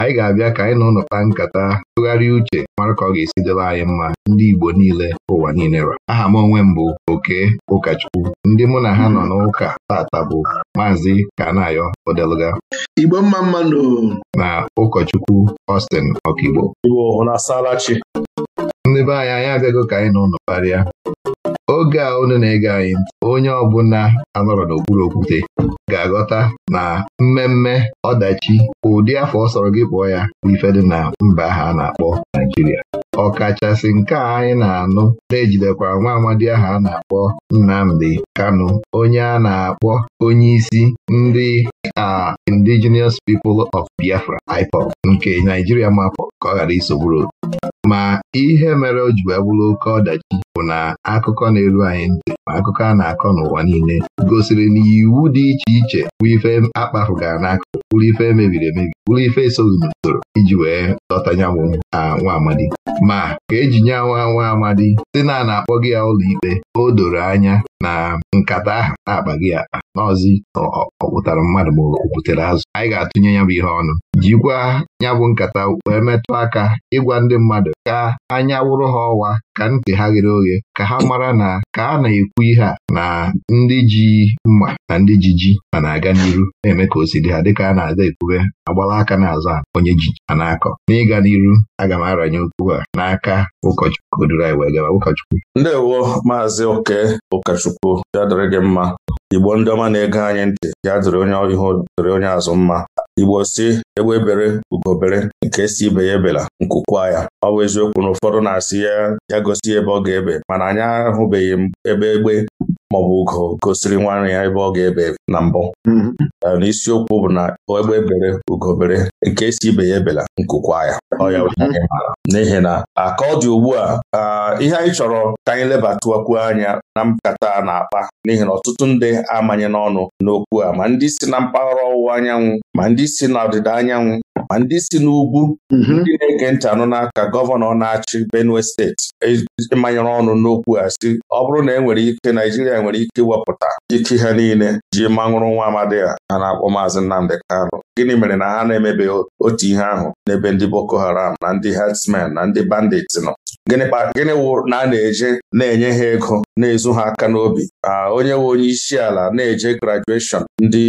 anyị ga-abịa ka anyị na ụlọ kpaa nkata tụgharịa uche mara ka ọ ga-esi dịla anyị mma ndị Igbo niile ụwa niile ra aha m onwe m bụ oke ụkọchukwu ndị mụ na ha nọ n'ụka tata bụ maazị Kanayo Odeluga Igbo mma mmanụ na ụkọchukwu Austin Okigbo ndị be anyị anyị abịago ka anyị na ụlọ kparịa oge a unu na-ege anyị ntị onye ọbụla anọrọ n'okpuru okwute ga-aghọta na mmemme ọdachi ụdị afọ ọ sọrọ gị kpọọ ya bụ ifedị na mba ha a na-akpọ Naijiria ọkachasị nke a anyị na-anụ na-ejidekwara nwa amadi ahụ a na-akpọ Nnamdi Kanu onye a na-akpọ onyeisi ndị a Indigenous People of Biafra Ipop, nke Naijiria mapụ ka ọ ghara isogburu ma ihe mere o ji bụrụ oke ọdachi bụ na akụkọ na-eru anyị ntị ma akụkọ a na-akọ n'ụwa niile gosiri na iwu dị iche iche bụ ife akpafugara n'akụkụ bụrụ ife mebiri emebi bụrụ ife esoghị n'usoro iji wee dọtanya bụ nwa amadi ma ka eji nye nwa nwa amadi dị na a na-akpọ gị ya ụlọikpe o doro anya na nkata ahụ na-akpa gị akpa n'ọzi ọ mmadụ ma o azụ anyị ga-atụnye ya bụ ihe ọnụ jikwa ya bụ nkata wee metụ aka ịgwa ndị mmadụ ka anya wụrụ ha ọwa ka ntị ha ghere oghe ka ha mara na ka a na-ekwu ihe a na ndị ji mma na ndị ji ji ma na-aga n'iru na-eme ka o si dị ha dịka a na-ada ekwube agbala aka n'azụ a onye ji ha na-akọ n'ịga n'iru aga m aranye okwu a n'aka ụkọchukwu duru anyị wee gaba ụkọchukwu ndewo maazị oke ụkọchukwu ya dịrị gị mma Igbo ndị ọma na ego anyị ntị ya dịrị onye ihu dịrị onye azụ mma Igbo si egbe bere ugo nke si ibe ya ebela nkukwa ya ọ bụ eziokwu na ụfọdụ na-asị ya ya gosi ebe ọ ga-ebe mana anyị ahụbeghị ebe egbe maọbụ ugo gosiri nwanne ya ebe ọ ga-ebe na mbụ mm-hmm. na isiokwu bụ na egbe bere ugo bere nke esi ibe ya ebela nkukwa ya n'ihi na aka ọ dị ugbu a ihe anyị chọrọ ka anyị lebatụkwuo anya na nkata na-akpa n'ihi na ọtụtụ ndị amanye n'ọnụ n'okwu a ma ndị si na mpaghara ọwụwa anyanwụ ma ndị si na ọdịda anyanwụ ma ndị si n'ugwu mhm. ndị na-ege ntị anụ n'aka gọvanọ na-achị Benue steeti ịmanyere ọnụ n'okwu ya si ọ bụrụ na e nwere ike Naijiria nwere ike iwepụta ike ha niile ji manwụrụ nwa amadi a ha na-akpọ maazị Nnamdi Kanu gịnị mere na ha na emebe otu ihe ahụ n'ebe ndị Boko Haram na ndị herdsmen na ndị nọ gịnị wụ na a na-eje na-enye ha ego na-ezu ha aka n'obi ah, onye nwe onye isi ala na-eje grajueshọn ndị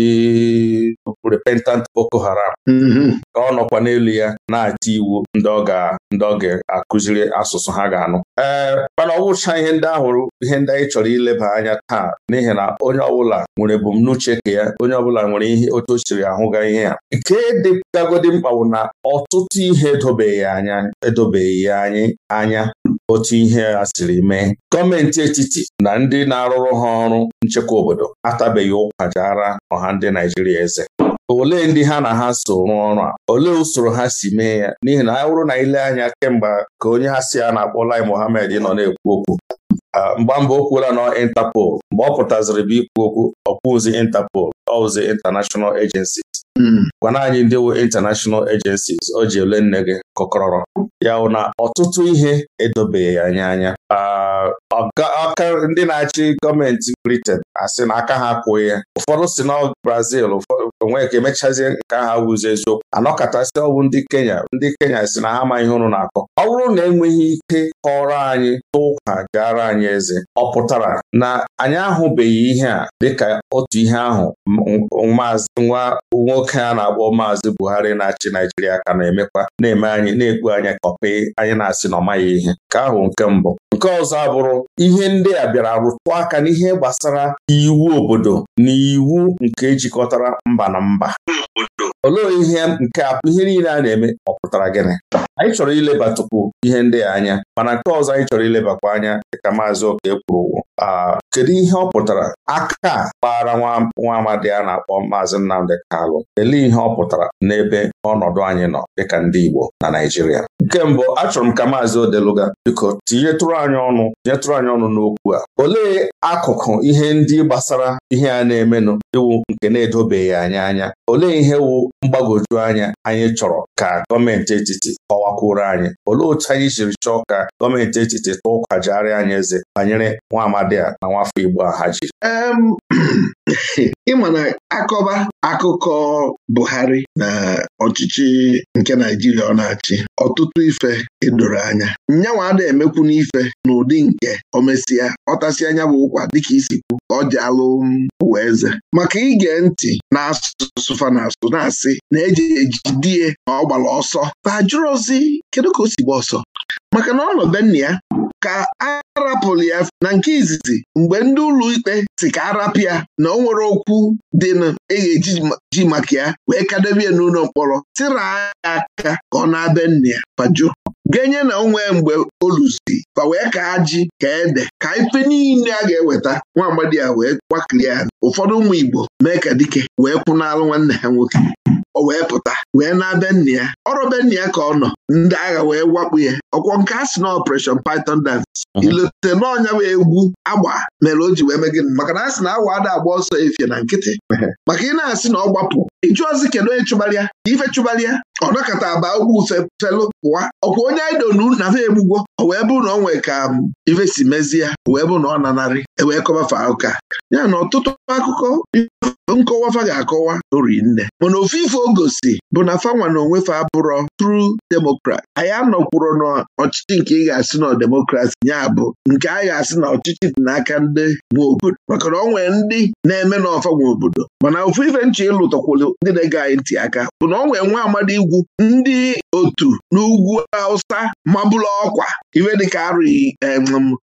repentant Boko Haram mm-hmm. ka ọ nọkwa n'elu ya na ata iwu ndị ọ ga ndị ọ ga-akụziri asụsụ ha ga-anụ ee eh, mana ọgwụcha ihe ndị ahụrụ ihe ndị anyị chọrọ ileba anya taa n'ihi na onye ọbụla nwere ebumnuche ka ya onye ọbụla nwere ihe otu o siri ahụga ihe ya nke dịgagodi mkpa na ọtụtụ ihe edobeghị anya edobeghị ya anyị anya otu ihe a siri mee gọọmenti etiti na ndị na-arụrụ ha ọrụ nchekwa obodo atabeghị ụkwa ọha ndị Naijiria eze olee ndị ha na ha so rụọ ọrụ a olee usoro ha si mee ya n'ihi na ha bụrụ na ile anya kemgbe ka onye ha si a na-akpọ Lai Mohammed nọ na-ekwu okwu mgba mbụ o kwuola nọ intapol mgbe ọ pụtaziri bụ ikwu okwu ọkwụzi intapol ọwụzi International Agency Hmm. gwana anyị ndị uwe international agencies o ji ele nne gị kọkọrọ ya na ọtụtụ ihe edobeghị anya anya ah, aka ndị na-achị gọọmenti Britain asị na aka ha akwụghị ụfọdụ si na Brazil onwe ka emechazie nke ahụ awụzi eziokwu anọkọtasị ọwụ ndị Kenya ndị Kenya si na ha ama ihe ụnụ na-akọ ọ bụrụ na enweghị ike kọrọ anyị tụkwa gara anyị eze ọ pụtara na anyị ahụbeghị ihe a dịka otu ihe ahụ maazị nwa nwoke a na-akpọ maazị Buhari na-achị Naijiria ka na-emekwa na-eme anyị na-ekpu anya kọpị anyị na-asị na ọ maghị ihe nke ahụ nke mbụ nke ọzọ abụrụ ihe ndị a bịara rụtụ aka n'ihe gbasara iwu obodo na iwu nke jikọtara mba na mba olee ihe nke ihe niile a na-eme ọ pụtara gịnị anyị chọrọ ilebatụkwu ihe ndị a anya mana nke ọzọ anyị chọrọ ilebakwa anya dịka maazị oke kwuru kedu ihe ọ pụtara aka kpara nwa amadi a na-akpọ maazị Nnamdị Kalụ elee ihe ọ pụtara n'ebe ọnọdụ anyị nọ dịka ndị Igbo na Naịjirịa nke mbụ achọrọ m ka maazị Odeluga biko tinyetụrụ anyị ọnụ nyetụrụ anyị ọnụ n'okwu a olee akụkụ ihe ndị gbasara ihe a na-emenụ iwu nke na-edobeghị anyị anya olee ihe wụ mgbagwoju anya anyị chọrọ ka gọọmenti etiti kọwakwuru anyị olee otu anyị jiri chọọ ka gọọmenti etiti tụọ ụkwajigharị anyị eze banyere nwa amadi a na nwafọ Igbo a ha jiri ịma na akọba akụkọ Buhari na ọchịchị nke Naijiria ọ na-achị ọtụtụ ife edoro anya nyanwa ada emekwu n'ife n'ụdị nke omesịa ọtasị anya bụ ụkwa dịka isikwu ka ọ ji alụ ụwa eze maka ige ntị na-asụsụ fa na-asụ na-asị na e eji ejidie na ọ gbara ọsọ fa jụrụ ozi kedu ka o si gba ọsọ maka na ọ nọ be nna ya ka a rapụrụ ya na nke izizi mgbe ndị ikpe si ka arapụ ya na o nwere okwu dị na e ga-eji ji maka ya wee kadebe ya n'ụlọ mkpọrọ tịra ya aka ka ọ na-abịa nna ya paju genye na onwe mgbe oluzi fa wee ka ji ka ede ka ife niile a ga-eweta nwa agbadi ya wee gbakiri ya ụfọdụ ụmụ Igbo mee ka dike wee kwụnalụ nwanne ha nwoke o wee pụta wee na-abịa nna ya ọrụ be nna ya ka ọ nọ ndị agha wee wakpu ya ọkwọ nke a sị na operation python dance ilote n'ọnya bụ egwu agba mere o ji wee megide maka na a sị na awa ada agba ọsọ efie na nkịtị maka ị na-asị na ọ gbapụ ịjụ ozi kedu onye ife chụbalịa ọ nọkọta aba ugwu felu pụwa ọkwa onye idonu na fe egbugwo o wee bụrụ na ọ nwee ka um, ife si mezie wee bụrụ na ọ nanarị ewee kọbafe ụka ya na ọtụtụ akụkọ nkọwa fa ga-akọwa ori nne mana ife o gosi bụ na fanwa na fa abụrọ tru demokrat anyị na n'ọchịchị nke ị ga-asị na demokrat ya bụ nke a ga-asị na ọchịchị dị n'aka ndị nwe obodo maka na ọ nwere ndị na-eme n'ọfa nwa obodo mana ofu ife nche ịlụtọkwụlụ ndị na-ege anyị ntị aka bụ na ọ nwere nwa amadi igwu ndị otu n'ugwu awụsa mabụla ọkwa iwe dịka arụghị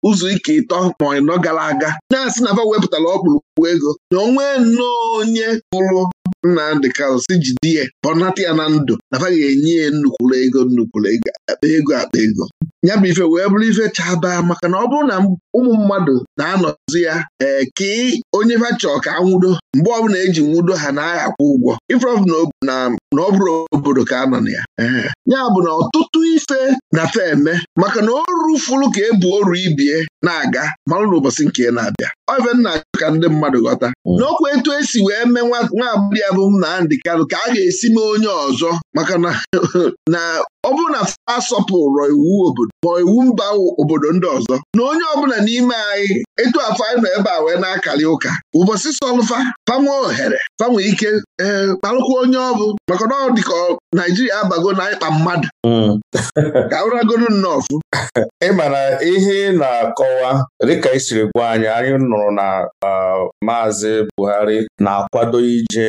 ụzọ ike ịtọ ma ịnọ gara aga na-asị na fa wepụtara ọkpụrụ ọgwụ ego na onwe nnọọ onye pụrụ Nnamdị Kalụ si jide ya bọnata ya na ndụ nafa enye ya nnukwuru ego nnukwuru ego akpa ego akpa ego ya bụ ife wee bụrụ ife chabaa maka na ọ bụrụ na ụmụ mmadụ na-anọzi ya ee ka onye fachọ ka nwudo mgbe ọbụla eji nwudo ha na-agha akwụ ụgwọ ifrọbụ na ọ bụrụ obodo ka a nọ na ya ya bụ na ọtụtụ ife na fe eme maka na o rufuru ka e buo oru ibie na-aga malụ ụbọchị nke na-abịa oven ka ndị mmadụ ghọta hmm. n'okwu etu esi wee mee nwa agbọghọ abụ bụ Nnamdi ka a ga-esi mee onye ọzọ maka na ọ bụrụ na fa asọpụrụ iwu obodo ma iwu mba obodo ndị ọzọ na onye ọbụla n'ime anyị etu afọ anyị nọ ebe a wee na-akarị ụka ụbọchị sọlụfa fanwe ohere fanwe ike ee eh, onye ọbụ maka na ọ dị ka Naijiria abago na ịkpa mmadụ hmm. ka ụragoro nnọọ ịmara ihe na-akọwa dịka isiri gwa anyị anyị nọ hụrụ na Maazị Buhari na-akwado ije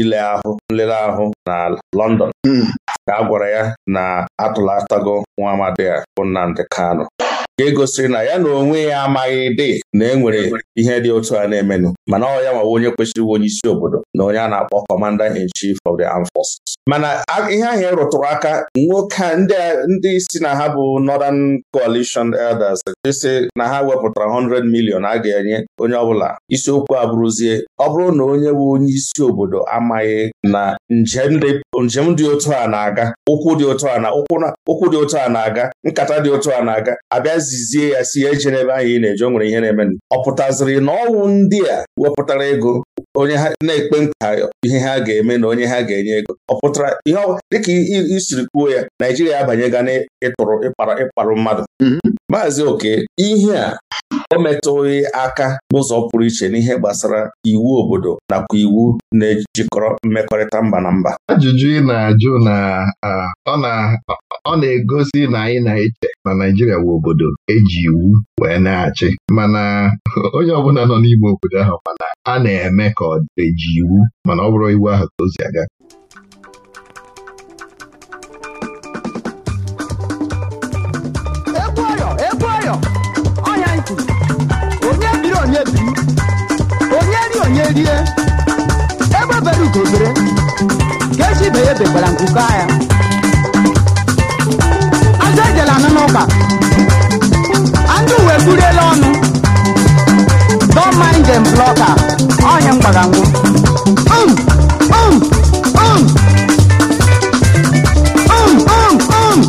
ile ahụ nlere ahụ na London hmm. ka gwara ya na atụlatago nwa amadi a bụ Nnamdi nke gosiri na ya na onwe ya amaghị dị na enwere ihe dị otu a na-emenụ mana ọ ya nwawa onye kwesịrị onye isi obodo na onye a na-akpọ Commander in Chief of the Armed Forces. mana ihe ahịa e rụtụrụ aka nwoke ndị isi na ha bụ Northern Coalition Elders si na ha wepụtara 100 million a ga-enye onye ọbụla isiokwu abụrụzie ọ bụrụ na onye bụ onye isi obodo amaghị na njem dị otu a na-aga ụkwụ dị otu a na ụkwụ dị otu a na-aga nkata dị otu a na-aga abịa zizie ya si eje n'ebe anyị ị na-eje o nwere ihe na-eme ọ pụtaziri na ọnwụ ndị a wepụtara ego onye ha na-ekpe nka ihe ha ga-eme na onye ha ga-enye ego ọ pụtara ihe dịka isiri kwuo ya Naijiria abanye abanyega n'ịtụrụ ịkpara ịkparụ mmadụ mhm. maazị oke ihe a Emetụghị metụghị aka n'ụzọ pụrụ iche n'ihe gbasara iwu obodo nakwa iwu na-ejikọrọ mmekọrịta mba na mba ajụjụ ị na-ajụ na ọ na-egosi na anyị na-eche na Naijiria bụ obodo eji iwu wee na-achị mana onye ọbụla nọ n'ime obodo ahụ mana a na-eme ka ọ eji iwu mana ọ bụrụ iwu ahụ ka o aga rie ebe obere ugobere ka echi ibe ya ebekwara nkuko agha azụ ejela anụ n'ụka andị uwe buriela ọnụ don mind them blọka onye mgbagangwu um um um um um um, um.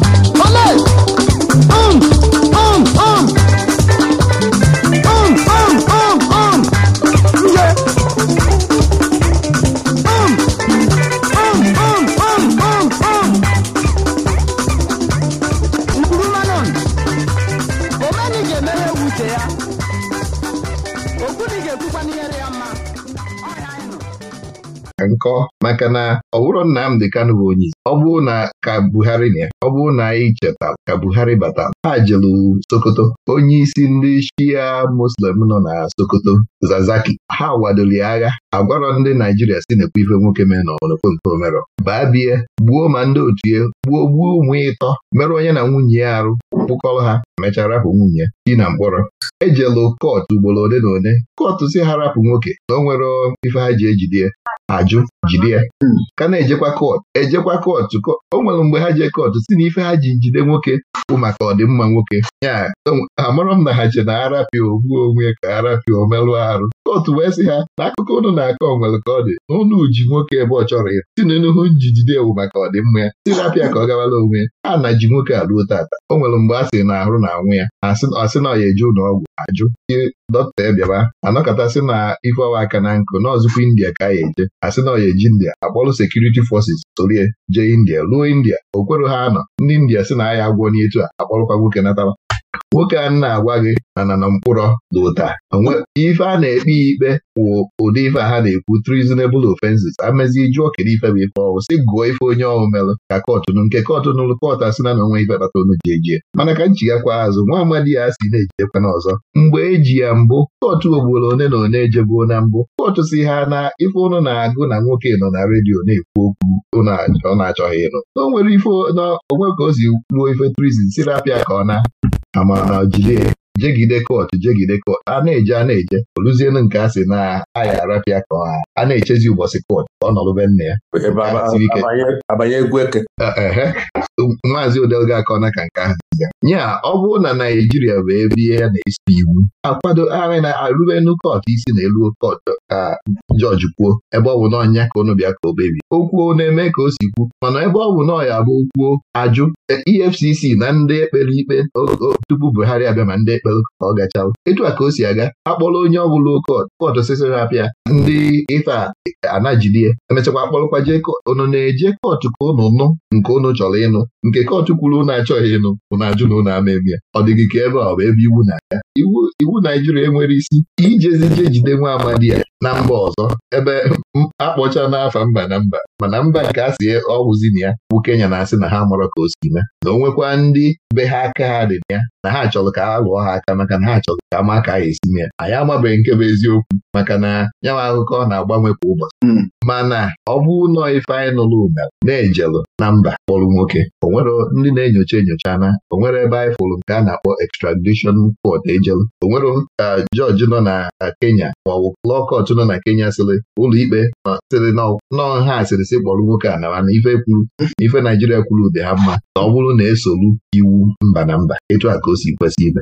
nkọ maka na ọ bụrụ Nnamdị Kanụ bụ onye isi ọ bụrụ na ka Buhari na ọ bụrụ na anyị cheta ka Buhari bata ha jelu Sokoto onye isi ndị Shia Muslim nọ na Sokoto Zazaki ha wadoli agha agwarọ ndị Naijiria si na ife nwoke mee na ọnụkpomkpo merọ baa bie gbuo ma ndị otu ya gbuo gbuo ụmụ ịtọ merụọ onye na nwunye ya arụ kpụkọrọ ha mechara hụ nwunye di na mkpọrọ ejelu kọt ugboro ole na ole kọt si ha rapụ nwoke na o nwere ife ha ji ejide ajụ jide ya hmm. ka na-ejekwa kot ejekwa kọtụ o nwere mgbe ha jee kọtụ si na ife ha ji jide nwoke bụ maka ọdịmma nwoke ya amarọ m na ha che na arapịa ogbuo onwe ka arapịa omerụ arụ kootu wee sị ha na akụkọ ụnụ na-akọ onwere ka ọ dị na ji nwoke ebe ọ chọrọ ya si na ji jide ewu maka ọdịmma ya si rapịa ka ọ gawala onwe Ha a na ji nwoke aruo tata o nwere mgbe a sị na na anwụ ya asị na ọ ya eje ụlọ ọgwụ ajụ ihe dọkịta Ebiaba si na ife ọwa aka na nkụ nọọzụkwa India ka ya eje asị na ọya eji India akpọlụ sekuriti fọsis sorie jee India ruo India o ha anọ ndị India si na agha agwọ n'etu a akpọrụkwa nwoke natara nwoke a na-agwa gị na na na mkpụrọ na ụda ife a na-ekpe ikpe wụ ụdị ife ha na-ekwu treasonable offenses amezi jụọ kedu ife bụ ife ọwụ si gụọ ife onye ọwụ melụ ka kọtụ nụ nke kọtụ nụlụ kọtụ asị na na onwe ife kpata onu ji ejie mana ka nchigakwa azụ nwa amadi ya si na-ejidekwa na ọzọ mgbe eji ya mbụ kọtụ ogbolo one na one ejebuo na mbụ kọtụ si ha na ife ụnụ na-agụ na nwoke nọ na redio na-ekwu okwu ọ na-achọghị ịnụ o nwere ife na onwe ka o si ruo ife trizin si rapịa ka ọ na amara jide jegide kot jegide kot a na-eje a na-eje oluzienu nke a sị na aya arapịa ka a na-echezi ụbọchị kot ọ na nne ya eh, maazị odelga na ka nke ahụ ya ọ bụrụ na Naijiria bụ ebe ihe ya na-esi iwu akwado arị na-arụbenu kot isi na elu kot ka jọji kwuo ebe ọ bụ na ọnya ka ụnụ bịa ka o kpebie okwuo na-eme ka o si kwu mana ebe ọ bụ na ọya bụ kwuo ajụ EFCC e na ndị ekpere ikpe tupu Buhari abịa ma ndị ikpelu ka ọ gachawa etu a ka o si aga akpọrọ onye ọ bụla kot osisi na-apịa ndị ife anajidie emechakwa akpọrọkwa jee na-eje kootu ka unu nụ nke unu chọrọ ịnụ nke kootu kwuru unu achọghị ịnụ unu ajụ na unu ama ya ọ dịghị ka ebe ọ bụ ebe iwu na-aga iwu Naijiria enwere isi ijezi je jide nwa amadi ya na mba ọzọ ebe akpọcha n'afa mba na mba mana mba nke a si e, ọwụzi na ya bụ Kenya na-asị na ha mụrụ ka o si mee na o nwekwa ndị be ha aka ha dị na ya na ha chọrọ ka ha lụọ ha aka maka na ha chọrọ ka maka a esi esi mee anyị amabeghị nke bụ eziokwu maka na nyanwa akụkọ na-agbanwe kwa ụbọchị hmm. mana ọ bụ ụlọ ife anyị nụrụ na-ejelụ na mba kpọrọ nwoke o nwere ndị na-enyocha enyocha na o nwere ebe anyị fụrụ nke a na-akpọ extradition court ejelụ o nwere eh, jọji nọ na eh, Kenya maọbụ lụọ kọchụ nọ na Kenya sịrị ụlọ ma sịrị nọọ ha asịrị sị kpọrọ nwoke a na ife kwuru ife Naijiria kwuru dị ha mma na ọ bụrụ na esolu iwu mba na mba etu aka o si kwesị ime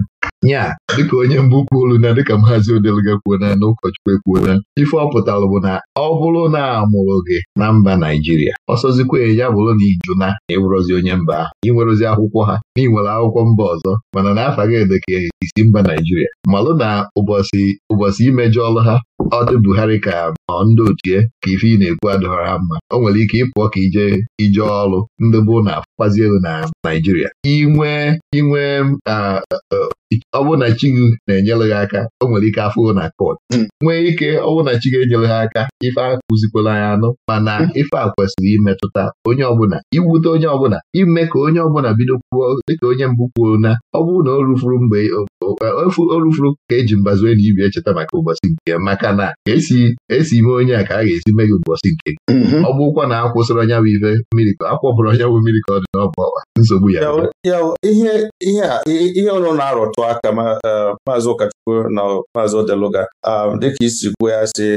nya dịka onye mbụ olu, na dịka maazi Odeluga kwuona na ụkọchukwu ekwuona ife ọ pụtara bụ na ọ bụrụ na amụrụ gị na mba Naijiria ọsọzikwa ya bụrụ na iju na ịbụrụzi onye mba ahụ inwerozi akwụkwọ ha na akwụkwọ mba ọzọ mana na afa gị isi mba Naijiria malụ na ụbọchị ụbọchị imejọ ọlụ ha ọ dị Buhari ka ọ ndị otie ka ife ị na-ekwu adọrọ ha mma o nwere ike ịpụọ ka ije ije ọrụ ndị bụ na afụkpazi elu na Naijiria inwe inwe um, uh, isi ọ bụrụ na chi gị na-enyere aka o nwere ike afụrụ na kot hmm. nwee ike ọ bụrụ na chi gị enyere ha aka ife akụzikwala ya anụ mana hmm. ife a kwesịrị imetụta onye ọbụla iwute onye ọbụla ime ka onye ọbụla bido kwuo dịka onye mbụ kwuo na ọ bụrụ na o rufuru mgbe o rufuru ka eji mbazue na ibi echeta maka ụbọchị nke maka na esi e ime onye a ka a ga-esi mee gị ụbọchị nke mm-hmm. ọ bụrụkwa na akwụsịrị onye bụ ife mmiri onye bụ mmiri ka ọ dị n'ọbụ ọwa nsogbu ya ihe ihe a ihe ọnụ na arụtụ aka e, maazị ụkọchukwu na maazị odeluga dịka isi kwuo ya si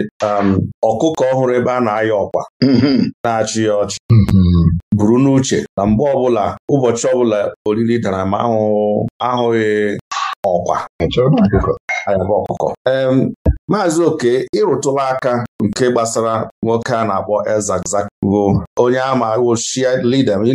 ọkụkọ ọhụrụ ebe a na-ayọ ọkwa mm-hmm. na-achị ya ọchị mm-hmm. buru n'uche na mgbe ọbụla ụbọchị ọbụla oriri dara ma ahụghị ọkwa ọkụkọ maazị oke ịrụtụla aka nke gbasara nwoke a na-akpọ Elzakzaki onye ama wụ shia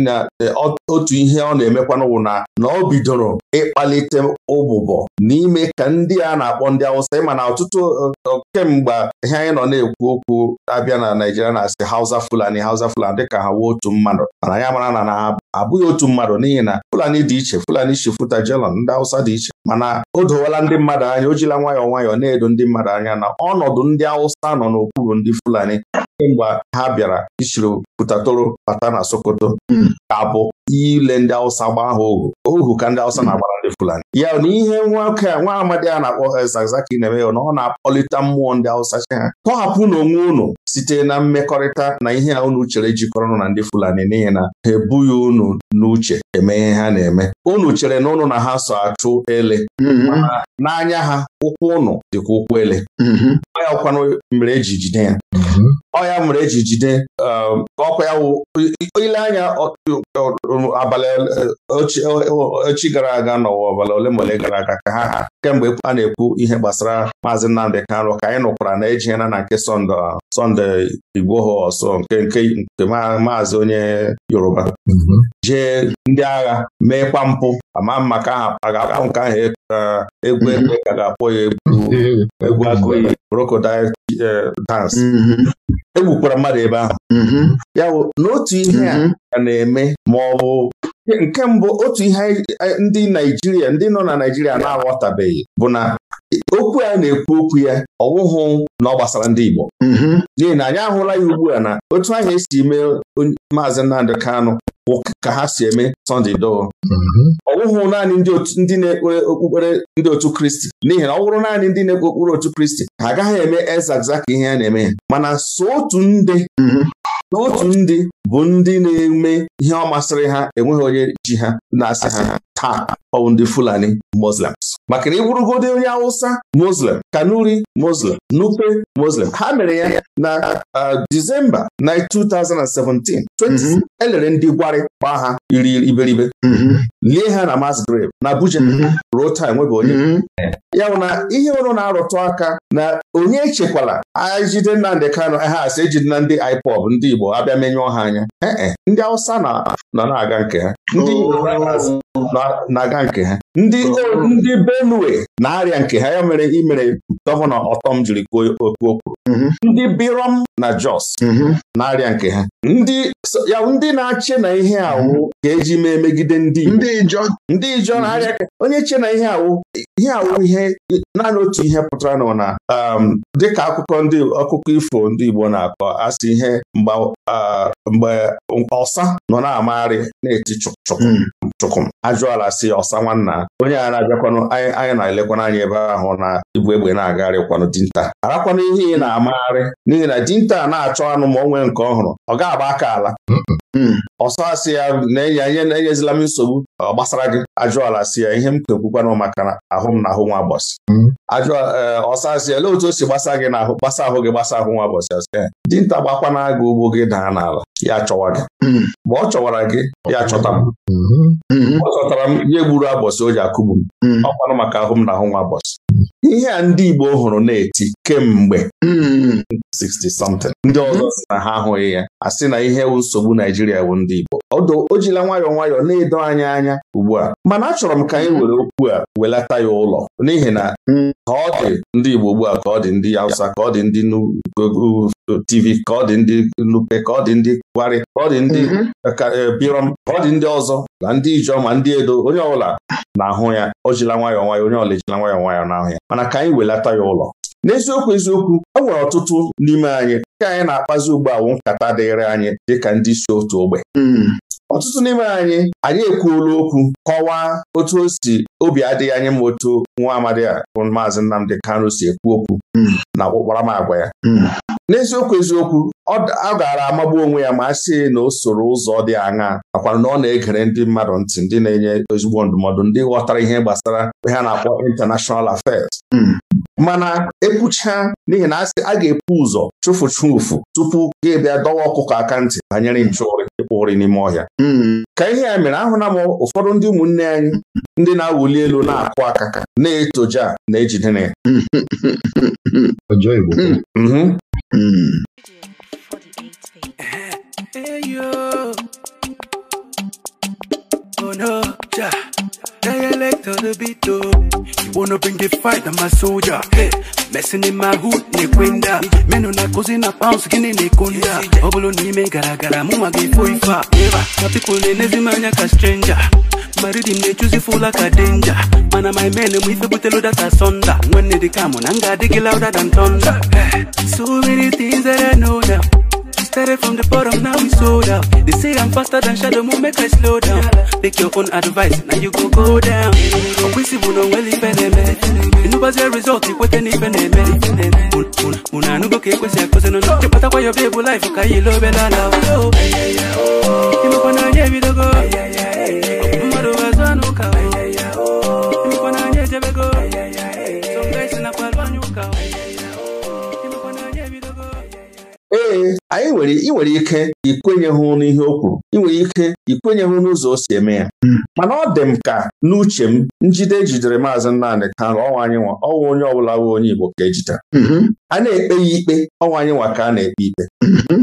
na e, otu ihe ọ na emekwa wụ na na ọ bidoro ịkpalite ụbụbọ n'ime ka ndị a na-akpọ ndị Hausa ịma na ọtụtụ e, e, kemgbe ihe anyị nọ na-ekwu okwu abịa na Naijiria na-asị Hausa Fulani Hausa Fulani dịka ha wuo otu mmadụ mana ya mara na na abụghị otu mmadụ n'ihi na Fulani dị iche Fulani futa jelon ndị Hausa dị iche mana o dowala ndị mmadụ anya o jila nwayọọ nwayọọ na-edo ndị mmadụ anya na ọnọdụ ndị Hausa nọ n'okwu bụ ndị Fulani kemgbe ha bịara isiri pụtatoro bata na Sokoto hmm. ka abụ ile ndị Awụsa gbaa ha ohu ohu ka ndị Awụsa na-agbara ndị Fulani ya na ihe nwoke a nwa amadi a na-akpọ eh, Zakzaki na-eme ya na ọ na-akpọlite mmụọ ndị Awụsa chi ha tọhapụ na onwe unu site na mmekọrịta na ihe a unu chere jikọrọ na ndị Fulani n'ihi na ha ebughị unu n'uche eme ihe ha na-eme unu chere na unu na ha so achụ ele mm-hmm. n'anya ha ụkwụ ụnụ dịkwa ụkwụ ele mm-hmm. ya ọkwanụ mere eji jide ya ọ ya mere eji jide ọkwa ya ile anya abalị echi gara aga n'ụwa ọbala ole ma ole gara aga ka ha kemgbe a na-ekwu ihe gbasara maazị Nnamdị Kanụ ka anyị nụkwara na ejighena na nke Sọnde ha ọsọ nke nke maazị onye Yoruba jee ndị agha kwa mpụ ama maka ahụ nke ahụ egwu ekwe ka ga-akpọ ya egwu egwu agụiyi brokodi. Mm-hmm. e egbukwara mmadụ ebe ahụ mm-hmm. ya bụ n'otu ihe mm-hmm. a na-eme ma ọ bụ nke mbụ otu ihe ndị Naijiria ndị nọ na Naijiria na-aghọtabeghị bụ na okwu a na-ekwu okwu ya ọ na ọ gbasara ndị Igbo n'ihi na anyị ahụla ya ugbu a na otu ahụ esi mee maazị Nnamdị Kanụ ka ha si eme Sunday doo mhm. ọ naanị ndị na-ekpere okpukpere ndị otu Kristi n'ihi na ọ wụrụ naanị ndị na-ekpe otu Kristi ha agaghị eme ezagza ka ihe a na-eme mana so otu nde. Mhm. n'otu ndị bụ ndị na-eme ihe ọ masịrị ha enweghị onye ji ha na-asị ha taa ọ ndị Fulani Muslims maka na ịbụrụgodị onye awụsa. Muslim Kanuri Muslim Nupe Muslim ha mere ya na Disemba na 2017 elere ndị gwarị gbaa ha iri iberibe mhm. lie ha na Mass na Abuja mhm. ruo taa enwebe onye mhm. ya bụ na ihe ọrụ na-arụtụ aka na onye echekwala ejide kano ha asị ejide na ndị IPOB ndị Igbo Igbo abịa menyụọ ha anya ee eh, eh. ndị Awụsa nọ na-aga nke ha ndị oh. na-aga nke ha ndị oh. ndị Benue na-arịa nke ha ya mere imere gọvanọ ọtọm jiri kwuo okwu okwu mhm. ndị Birom na Jos mhm. na-arịa nke ha ndị ya ndị na-achị na ihe awụ mhm. ga eji mee megide ndị Igbo ndị Ijọ na-arịa onye che na ihe awụ ihe awụ ihe naanị otu ihe pụtara nọ na um, dịka akụkọ ndị ọkụkọ ifo ndị Igbo na-akọ asị ihe mgba mgbe ọsa nọ na-amagharị na-eti chụkụm hmm. ajụ ajụala si ọsa nwanna onye a na-abịakwanụ anyị na-elekwana anya ebe ahụ na ibu egbe na-agagharịkwanụ dinta arakwanụ ihe ị na-amagharị n'ihi na dinta na-achọ anụ ma o nke ọhụrụ ọ ga-agba aka ala hmm. Hmm. ọsọ asị ya na-enye ihe na-enyezila m nsogbu ọ gbasara gị ajụala asị ya ihe m kekwukwana maka ahụ m na ahụ nwa bọsị hmm. ajụọ eh, ọsọ asị ya lee otu o si gbasa gị n'ahụ gbasa ahụ gị gbasa ahụ nwa bọsị asị ya dinta gbakwana agụ ugbo gị daa n'ala ya chọwa gị hmm. mgbe ọ chọwara gị ya chọta m ọ chọtara m ihe gburu abọsị o ji akụgbu m ọkwanụ maka ahụ m na ahụ nwa bọsị ihe a ndị Igbo hụrụ na-eti kemgbe 60 hmm. something ndị ọzọ hmm. si na ha ahụghị ya a sị na ihe bụ nsogbu Naijiria bụ ndị Igbo ọdụ o jila nwayọọ nwayọọ na-edo anya anya ugbu a mana achọrọ m ka anyị hmm. were okwu a welata ya ụlọ n'ihi na ka ọ dị ndị Igbo ugbu a ka ọ dị ndị Hausa ka ọ dị ndị TV ka ọ dị ndị Nupe ka ọ dị ndị Gwari ka ọ dị ndị eh, eh, Birom ka ọ dị ndị ọzọ na ndị Ijeọma ndị Edo onye ọbụla na-ahụ ya o jila nwayọọ nwayọọ onye ọla ejila nwayọọ nwayọọ na-ahụ ya mana ka anyị welata ya ụlọ n'eziokwu eziokwu e nwere ọtụtụ n'ime anyị ka anyị na-akpazi ugbu awụ nkata dịịrị anyị dịka ndị isi otu ogbe hmm. ọtụtụ n'ime anyị anyị ekwuola okwu kọwaa otu o si obi adịghị anyị ma otu nwa amadi a bụ maazị Nnamdi Kanu si ekwu okwu hmm. na ọkpụkpara m agwa ya hmm. n'eziokwu eziokwu ọ gara amagbu onwe ya ma a na o soro ụzọ dị aṅa akwara na ọ na-egere ndị mmadụ ntị ndị na-enye ezigbo ndụmọdụ ndị ghọtara ihe gbasara ha na-akpọ international affairs hmm. mana ekwucha n'ihi na a ga-epu ụzọ chụfụ ụfụ tupu gị bịa dọwa ọkụkọ aka ntị banyere nchụụrị ịkpụ ụrị n'ime ọhịa hmm. ka ihe ya mere ahụla m ụfọdụ ndị ụmụnne anyị ndị na-awụli elu na-akụ akaka na-etoja na ejidere ya hmm. Eyo! Hey yo. Oh no, ja. Dialect on the beat oh. You wanna bring the fight, I'm a soldier. Hey, messing in my hood, Meno na kuzi na pounds, gini nekonda. Obolo nime gara gara, muma gifoifa. Eva, na people anya ka stranger. maridim na-echuzi fụla ka denja mana my men m ife bute data sonda nwanne na louder than thunder so Started from the bottom, now we sold out. They say I'm faster than shadow moon, make I slow down. Take your own advice, now you go go down. Okwisibu no well even eme. Inubazi result result, you wait even eme. Una nugo ke kwesi akose no no. Chepata kwa your baby life, ukayi lo belala. Ima kwa na nye vidogo. Mmaru wazwa nuka. ee anyị nwere ị nwere ike ikwenyeghụ ihe o kwuru ị nwere ike ikwenyeghụ ụzọ o si eme ya hmm. mana ọ dị m ka n'uche m njide jidere maazị Nnamdị Kanụ ọnwa anyị nwa ọnwa onye ọbụla bụ onye Igbo ka ejide hmm. a na-ekpe ya ikpe ọnwa anyị nwa ka a na-ekpe ikpe hmm.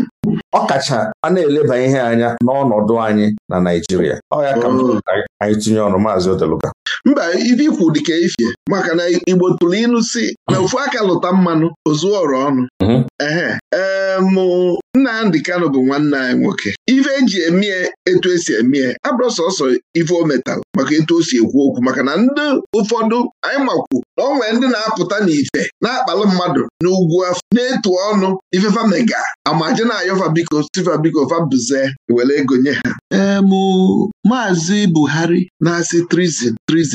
ọ kacha a na-eleba ihe anya n'ọnọdụ anyị na Naịjirịa ọ ka oh. anyị tinye ọnụ maazị Odeluga mba ife ikwu dịka ifie maka na igbo tụrụ ịnụ si na ofu aka lụta mmanụ ozuo ọnụ mhm. ee mụ Ndị Kano bụ nwanne anyị nwoke ife eji emie etu esi emie abụrụ sọsọ ife o maka etu o si ekwu okwu maka na ndị ụfọdụ anyị makwu na onwe ndị na-apụta n'ife na-akpalụ mmadụ n'ugwu afọ na-etu ọnụ ifefa mega amaje na-ayọfa biko sifa biko fabuze were ego nye ha ee mụ maazị Buhari na-asị trizin trizin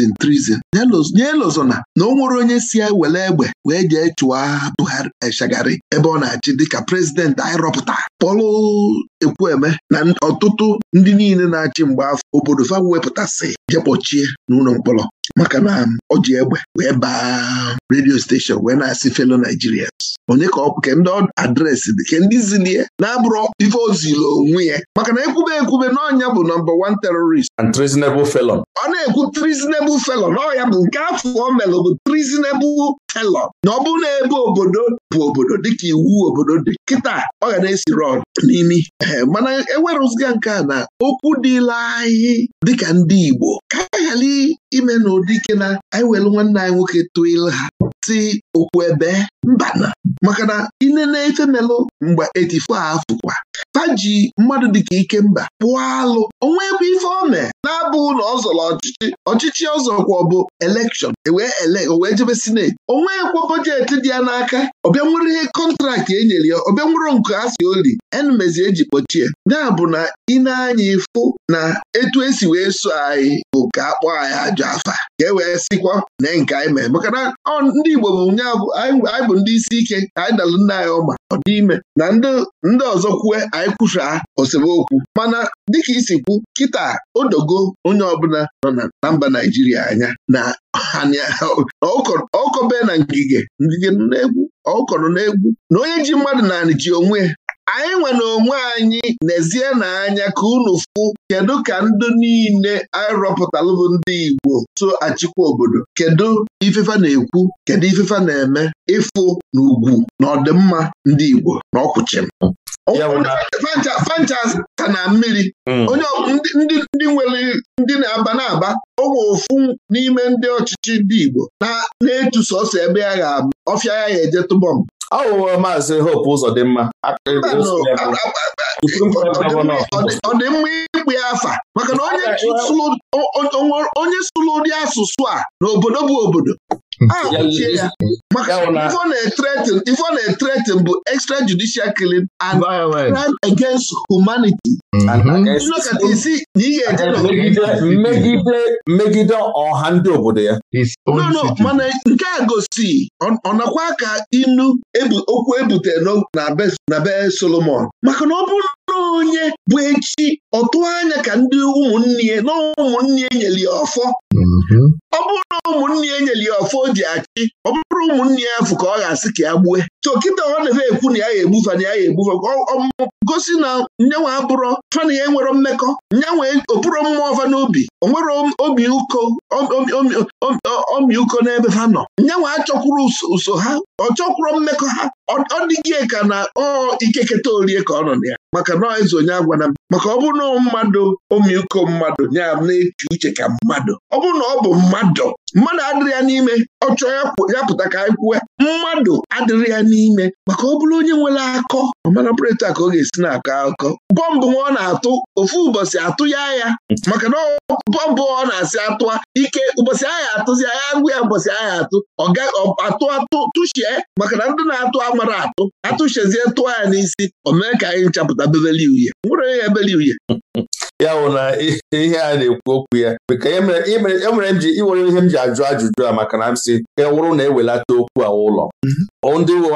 nye lụzọ na o nwere onye si ya e were egbe wee jee chụwa Buhari Eshagari eh, ebe ọ na-achị dịka prezidenti anyị rọpụta ekwueme na ọtụtụ ndị niile na-achị mgbe afọ obodo fa wepụtasị jekpọchie n'ụlọ mkpọrọ maka na ọ um, ji egbe wee baa redio steshọn wee na-asị Felo Naijiria. onye ka ọ ke ndị adreesị dị ke ndị zilie na-abụrụ ife ozilo onwe ya maka na ekwube ekwube n'ọnya bụ nọmba wan terrorist and treasonable felon ọ na-ekwu treasonable felon ọ ya bụ nke afọ o melụ bụ treasonable helọp na ọ bụrụ na ebe obodo bụ obodo dịka iwu obodo dị kịta ọ ga na-esi rọd n'imi ee mana ewerụziga nke a na okwu dịla anyị dịka ndị Igbo ka anyị ghara ime na ụdị ike na anyị nwere nwanne anyị nwoke tụọ ilu ha si okwu ebe mbana maka na inene efemelụ mgbe 84 afọ kwa faji mmadụ dịka ikemba pụọ alụ onwe ebe ife ọ mee na-abụ na ọ zọrọ ọchịchị ọchịchị ọzọkwa bụ elekshọn ewee jebe sineti onweghịkwa bọjetị dị ya n'aka ọbịa nwere ihe kọntraktị e nyere ya ọbịa nwere nke a si oli enumezi eji kpọchie ya bụ na ị na-anya ịfụ na etu esi wee so anyị bụ ka a kpọọ anyị ajọ afa ka e wee sikwa na nke anyị mee maka na ndị Igbo bụ nya anyị bụ ndị isi ike ka anyị dalụ nna anyị ọma ọ na ndị ọzọ kwue anyị kwusa osemokwu mana dịka isi kwu kịta odogo onye ọbụla nọ na mba Naijiria anya na ọkọbe na ngige na-egwu ọkọrọ na egwu na onye ji mmadụ na ji onwe anyị nwere onwe anyị nezie n'anya ka unu fụ kedu ka ndị niile anyị bụ ndị Igbo so achịkwa obodo kedu ifefa na-ekwu kedu ifefa na-eme ịfụ na ugwu na ọdịmma ndị Igbo na ọkwụchim fanchas ka na mmiri hmm. onye ndị nwere ndị na-aba na-aba onwe ofu n'ime ndị ọchịchị ndị Igbo na-etu sọsọ ebe ya ga-abụ ọfịa ya ga-eje tụbọm aghụghọ maazị Hope Uzodimma ọ dị mma ikpe afa maka na onye sụlụ ụdị asụsụ a n'obodo bụ obodo ife ọ na-etretin bụ extra judicial killing and crime against humanity isi na ị ga-eje mmegide ọha ndị obodo ya mana nke a gosi ọ nakwa aka inu okwu ebute na be Solomon maka na ọ bụ na onye bụ echi ọtụ anya ka ndị ụmụnne ya na ụmụnne nyere ya ọfọ Mm-hmm. ọ bụrụ ụmụnne ya e nyere ya ọfọ o achị ọ bụrụ ụmụnne ya afụ ka ọ ga-asị ka ya gbue chọkịta ọ na efe ekwu na ya ya egbufe na ya ya egbufe gosi na nyanwa abụrọ fana ya enwero mmekọ nyanwa okpuru mmụọ ọfa n'obi onwere obi ụkọ ọmịuko n'ebe ha nọ nyanwa achọkwuru ụso ha ọ chọkwuru mmekọ ha ọ dịghị ka na ọ ikeketa orie ka ọ nọ na ya maka na eze onye agwana maka ọ bụrụ na mmadụ ọmịuko mmadụ na-eche uche ka mmadụ ọ bụrụ na ọ bụ mmadụ mmadụ adịrị ya n'ime ọ chọọ ya pụta ka anyị kwue mmadụ adịrị ya n'ime maka ọ bụrụ onye nwere akọ ọmara pụrịta ka ọ ga-esi na-akọ akọ bọmbụ ọ na-atụ ofu ụbọchị atụ ya ya maka na bọmbụ ọ na-asị atụa ike ụbọchị agha atụzi agha ngwa ya ụbọchị agha atụ atụ atụ tụchie maka na ndị na-atụ amara atụ atụchezie tụọ ya n'isi o mee ka anyị nchapụta bebeli uhie nwere onye ya ebeli uhie ya bụ na ihe a na-ekwu okwu ya ka enwere e e m ji iwere ihe m ji ajụ ajụjụ a maka na m si ka e wụrụ na ewelata okwu a ụlọ mhm. ndị ụmụ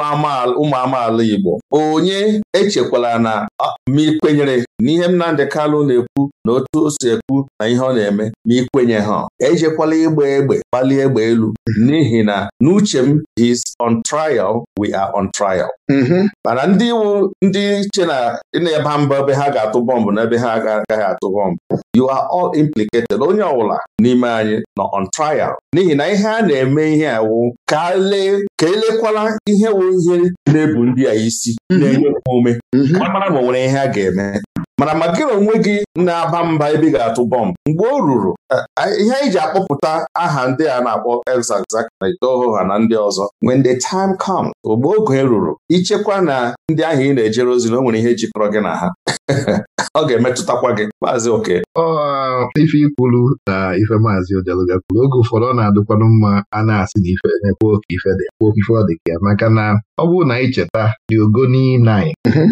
amaala Igbo onye echekwala na ma ikwenyere na ihe Nnamdị Kalụ na-ekwu na otu o si ekwu na ihe ọ na-eme ma ikwenye ha ejekwala ịgba egbe kpalie egbe elu mhm. n'ihi na n'uche m is on trial we are on trial mhm. mana ndị iwu ndị che na na-eba mba ebe ha ga-atụ bọmbụ n'ebe ha agaghị atụghọ m you are implicated onye ọbụla n'ime anyị nọ on trial n'ihi na ihe a na-eme ihe a wụ ka elekwala ihe wụ ihe na-ebu ndị a isi mhm. na-enye ume mhm. mara ma nwere ihe a ga-eme mana maka gị onwe gị na-aba mba ebe ị ga-atụ bọmbụ mgbe o ruru ihe anyị ji akpọpụta aha ndị a na-akpọ Elzazak na ha na ndị ọzọ when the time comes mgbe oge ruru ichekwa na ndị ahụ ị na-ejere ozi na o nwere ihe jikọrọ gị na ha ọ ga-emetụtakwa gị maazị oke ife ikwulu na ife maazị odeluga kwuru oge ụfọdụ ọ na-adịkwanụ mma a na-asị na ife na-ekwe ife dị ọ dị ka ya maka na ọ bụrụ na anyị cheta ogo n'i nine mhm.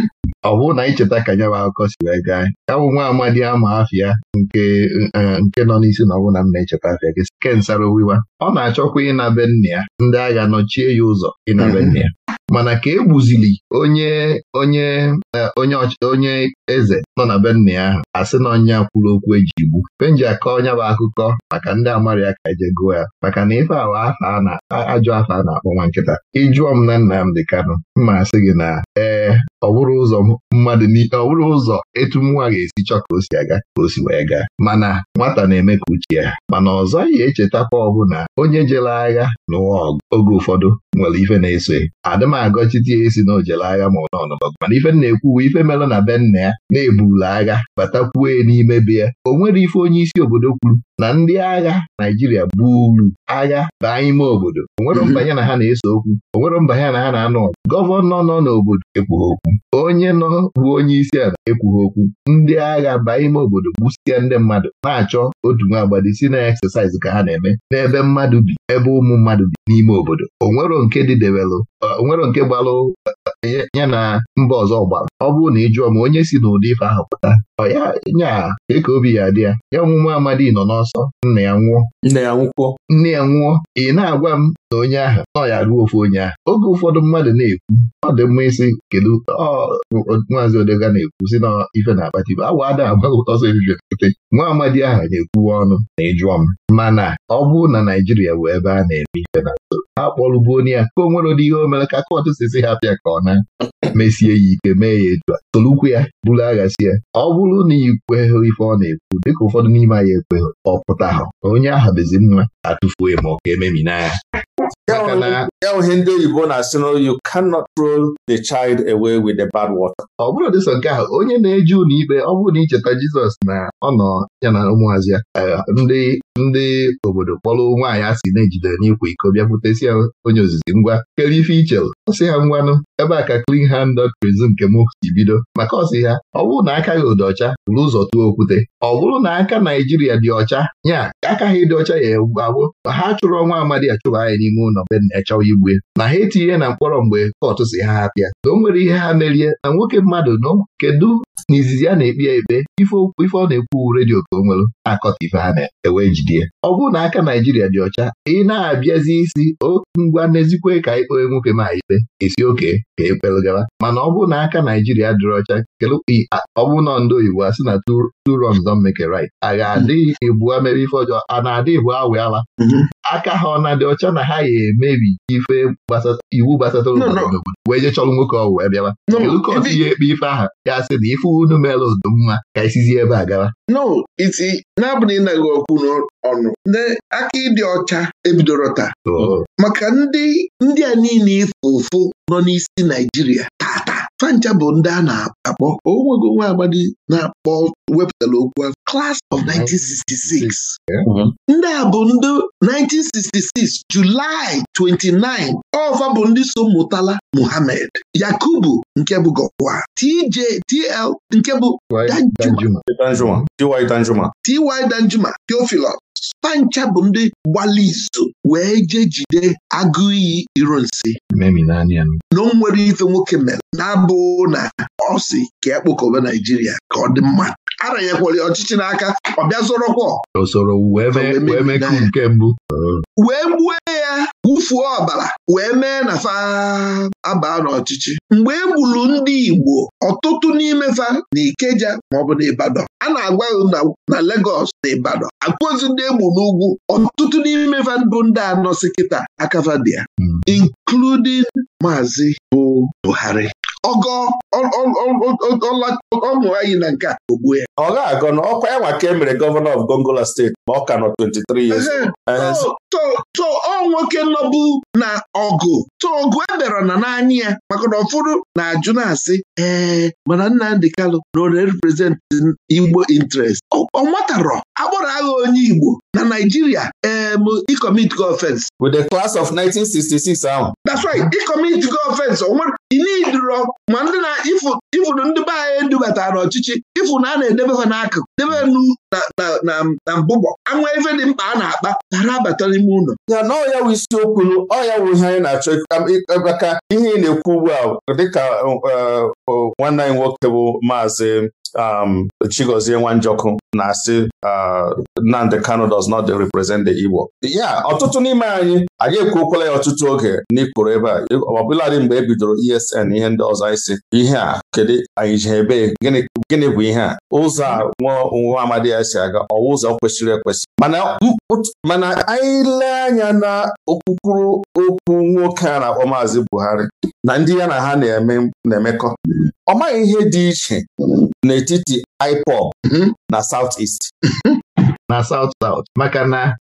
ọ bụrụ na ka nya bụ akụkọ si wee gaa ya bụ nwa amadi ama afịa nke e, e, nke nọ n'isi na ọbụna na m na-echeta afịa gị ke nsara owiwa ọ na-achọkwa ịnabe nna ya ndị agha nọchie ya ụzọ ịnabe nna ya mana ka e gbuzili onye onye e, onye onye eze nọ na be nna ya ahụ sị na ọnya kwuru okwu eji igbu penji akọ onye bụ akụkọ maka ndị amarị ya ka eje gụọ ya maka na ife awa ajọ afọ a na-akpọ nwa nkịta ịjụọ m na Nnamdi Kanụ mma asị gị na ee ọ bụrụ ụzọ mmadụ ọ bụrụ ụzọ etu nwa ga-esi chọ ka o si aga ka o si wee gaa mana nwata na-eme ka uche ya mana ọzọ ga-echeta echetakwa ọbụna onye jere agha n'ụwa oge ụfọdụ nwere ife na-eso adịm agọchite ya esi na ojele agha ma ọ nọnọgụ mana ife na-ekwuwe ife mere na be nna ya na ebula agha ya n'ime be ya o nwere ife onye isi obodo kwuru na ndị agha Naijiria buru agha baa ime obodo o nwere mbanye na ha na-eso okwu onwere mbanye na ha na-anụ gọvanọ nọ n'obodo ekwughị okwu onye nọ bụ onye isi ala ekwughị okwu ndị agha baa ime obodo gbusịa ndị mmadụ na-achọ otu nwa agbadi si na eksesaịz ka ha na-eme n'ebe mmadụ bi ebe ụmụ mmadụ bi n'ime obodo onwero nke dịdebelụ onwero nke gbalụ eh, ya na mba ọzọ gbara ọ bụrụ na ị jụọ ma onye si n'ụdị ife ahụ pụta ọ ya nya eke obi ya dị ya ya ọmụmụ amadi nọ n'ọsọ nna ya nwụọ nna ya nwụkwọ nne ya nwụọ ị na-agwa m na onye ahụ nọ ya ruo ofe onye ahụ oge ụfọdụ mmadụ na-ekwu ọ dị mma isi kedu maazị Odega na-ekwu si na ife na bụ, awa ada agbaghị ọsọ ebibi pụte nwa amadi ahụ na-ekwuwe ọnụ na ịjụọ m mana ọ bụrụ na Naijiria bụ ebe a na-eme ife na nso ha kpọrụbu onye ya ka o nwere ụdị ihe o mere ka kọtụ si si ha pịa ka ọ na mesie ya ike mee ya etu a tolukwu ya bụrụ agha si ya ọ bụrụ na ikweghị ife ọ na-ekwu dịka ụfọdụ n'ime anyị ekweghị ọ pụta ha onye ahụ bezi mma atụfuo ma ọ ka ememina ya ya ihe ndị oyibo na-asị you cannot throw the child away with the bad water. ọ bụrụ dịsọ nke ahụ onye na eji ụlọ ikpe ọ bụrụ na icheta Jizọs na ọ nọ ya na ụmụazị ya eh, ndị ndị obodo kpọrọ nwaanyị a sị na-ejide n'ikwa iko bịakwutesi ya onye ozizi ngwa kelife ife ọ sị ha ngwanụ ebe a ka clean hand doctrinism nke m si bido maka ọsị ha ọ bụrụ na aka gị ụdị ọcha bụrụ ụzọ tụọ okwute ọ bụrụ na aka Naijiria dị ọcha nya aka ha ịdị ọcha ya gbagbo ha chụrụ ọnwa amadi achụrụ anyị n'ime ụlọ be na-echawa igwe na ha etinye na mkpọrọ mgbe kọtụ si ha hapịa na o nwere ihe ha merie na nwoke mmadụ nọ kedu n'izizi a na-ekpe ya ekpe ife ọ na-ekwu redio ka o nwere na-akọta ife ha na-ewe e ọ bụrụ na aka Naijiria dị ọcha ị na-abịazi isi ngwa n'ezikwe ka anyị nwoke ma ikpe esi oke ka ekpelụgara mana ọ bụrụ na aka Naijiria dịrị ọcha ọ bụrụ na ndị oyibo asị na two wrongs don't make a right a ga-adị ibua mere ife ọjọọ a na-adị ibu awe ala mhm. aka ha ọ na-adị ọcha na ha ya emebi ife iwu gbasatara obodo wee je chọrọ nwoke ọwụ ebịawa Elukọs ihe ekpe ife aha gasị na ife unu mere ụdụ mma ka isizi ebe a gara. no iti na-abụ na ịnaghị ọnụ n'ọnụ aka ịdị ọcha ebidoro taa maka ndị ndị a niile ife ụfụ nọ n'isi Naijiria fancha bụ ndị a na-akpọ onwego nwa agbadi na-akpọ wepụtara okwu class of 1966 mm-hmm. ndị a bụ ndị 1966 Julaị 29 ọva bụ ndị so mụtala Mohammed, Yakubu nke bụ Gọwa TJ TL nke bụ Danjuma TY Danjuma Theophilus Spancha bụ ndị gbali izu wee jee jide agụ iyi iro nsi na o nwere ife nwoke mere na-abụ na ọ si ka ekpokọba Naijiria ka ọ dị mma aranyekwara ọchịchị n'aka ọ bịa zorokwa wee gbuo ya wufuo ọbara wee mee na fa abaa n'ọchịchị mgbe e gburu ndị Igbo ọtụtụ n'imefa na Ikeja maọbụ n'Ibadan, a na-agwa na Legọs na Ibadan akpụzi ndị egbu n'ugwu ọtụtụ n'imefa bụ ndị anọsi kịta akavadia hmm. including Maazị bụ Buhari ọgọ ọṅụ anyị na nke a ogbu ya ọ agọ na ọkwa ya ka e mere gọvanọ of Gongola steeti ma ọ ka nọ 23 years ọ nwoke nọbụ na ọgụ so ọgụ ebere na n'anya ya maka na ụfọdụ na-ajụ na-asị ee mana Nnamdi Kalụ na ọ Igbo interest ọ matarọ akpọrọ agha onye Igbo na Naijiria em ikomitigo offense with klas class of 1966 ahụ that's right go offense onwere inidro ma ndị na ifuru ndị be anyị edubatara ọchịchị ifu na a na ha n'akụkụ debe nu na mbụbọ anwa ife dị mkpa a na-akpa ghara abata n'ime ụlọ ya na ọya wụ isiokwu ọya wụ ihe anyị na-achọ maka ihe ị na-ekwu ugbu a dịka eh, nwanne anyị nwoke bụ maazị um, Chigozie Nwanjọkụ na-asị ah, Nnamdi Kanu does not represent the Igbo ya ọtụtụ n'ime anyị anyị ekwuokwala ya ọtụtụ oge n'ikporo ebe a ọbụladị mgbe e bidoro ESN ihe ndị ọzọ anyị si ihe a kedu anyị ji ebe gịnị bụ ihe a ụzọ a nwa amadi ya si aga ọwa ụzọ kwesịrị ekwesị mana anyị lee anya na okpukpuru okwu nwoke a na-akpọ Maazị Buhari na ndị ya na ha na-emekọ ọ maghị ihe dị iche n'etiti IPOB mhm. na South East. Mhm. na South South maka na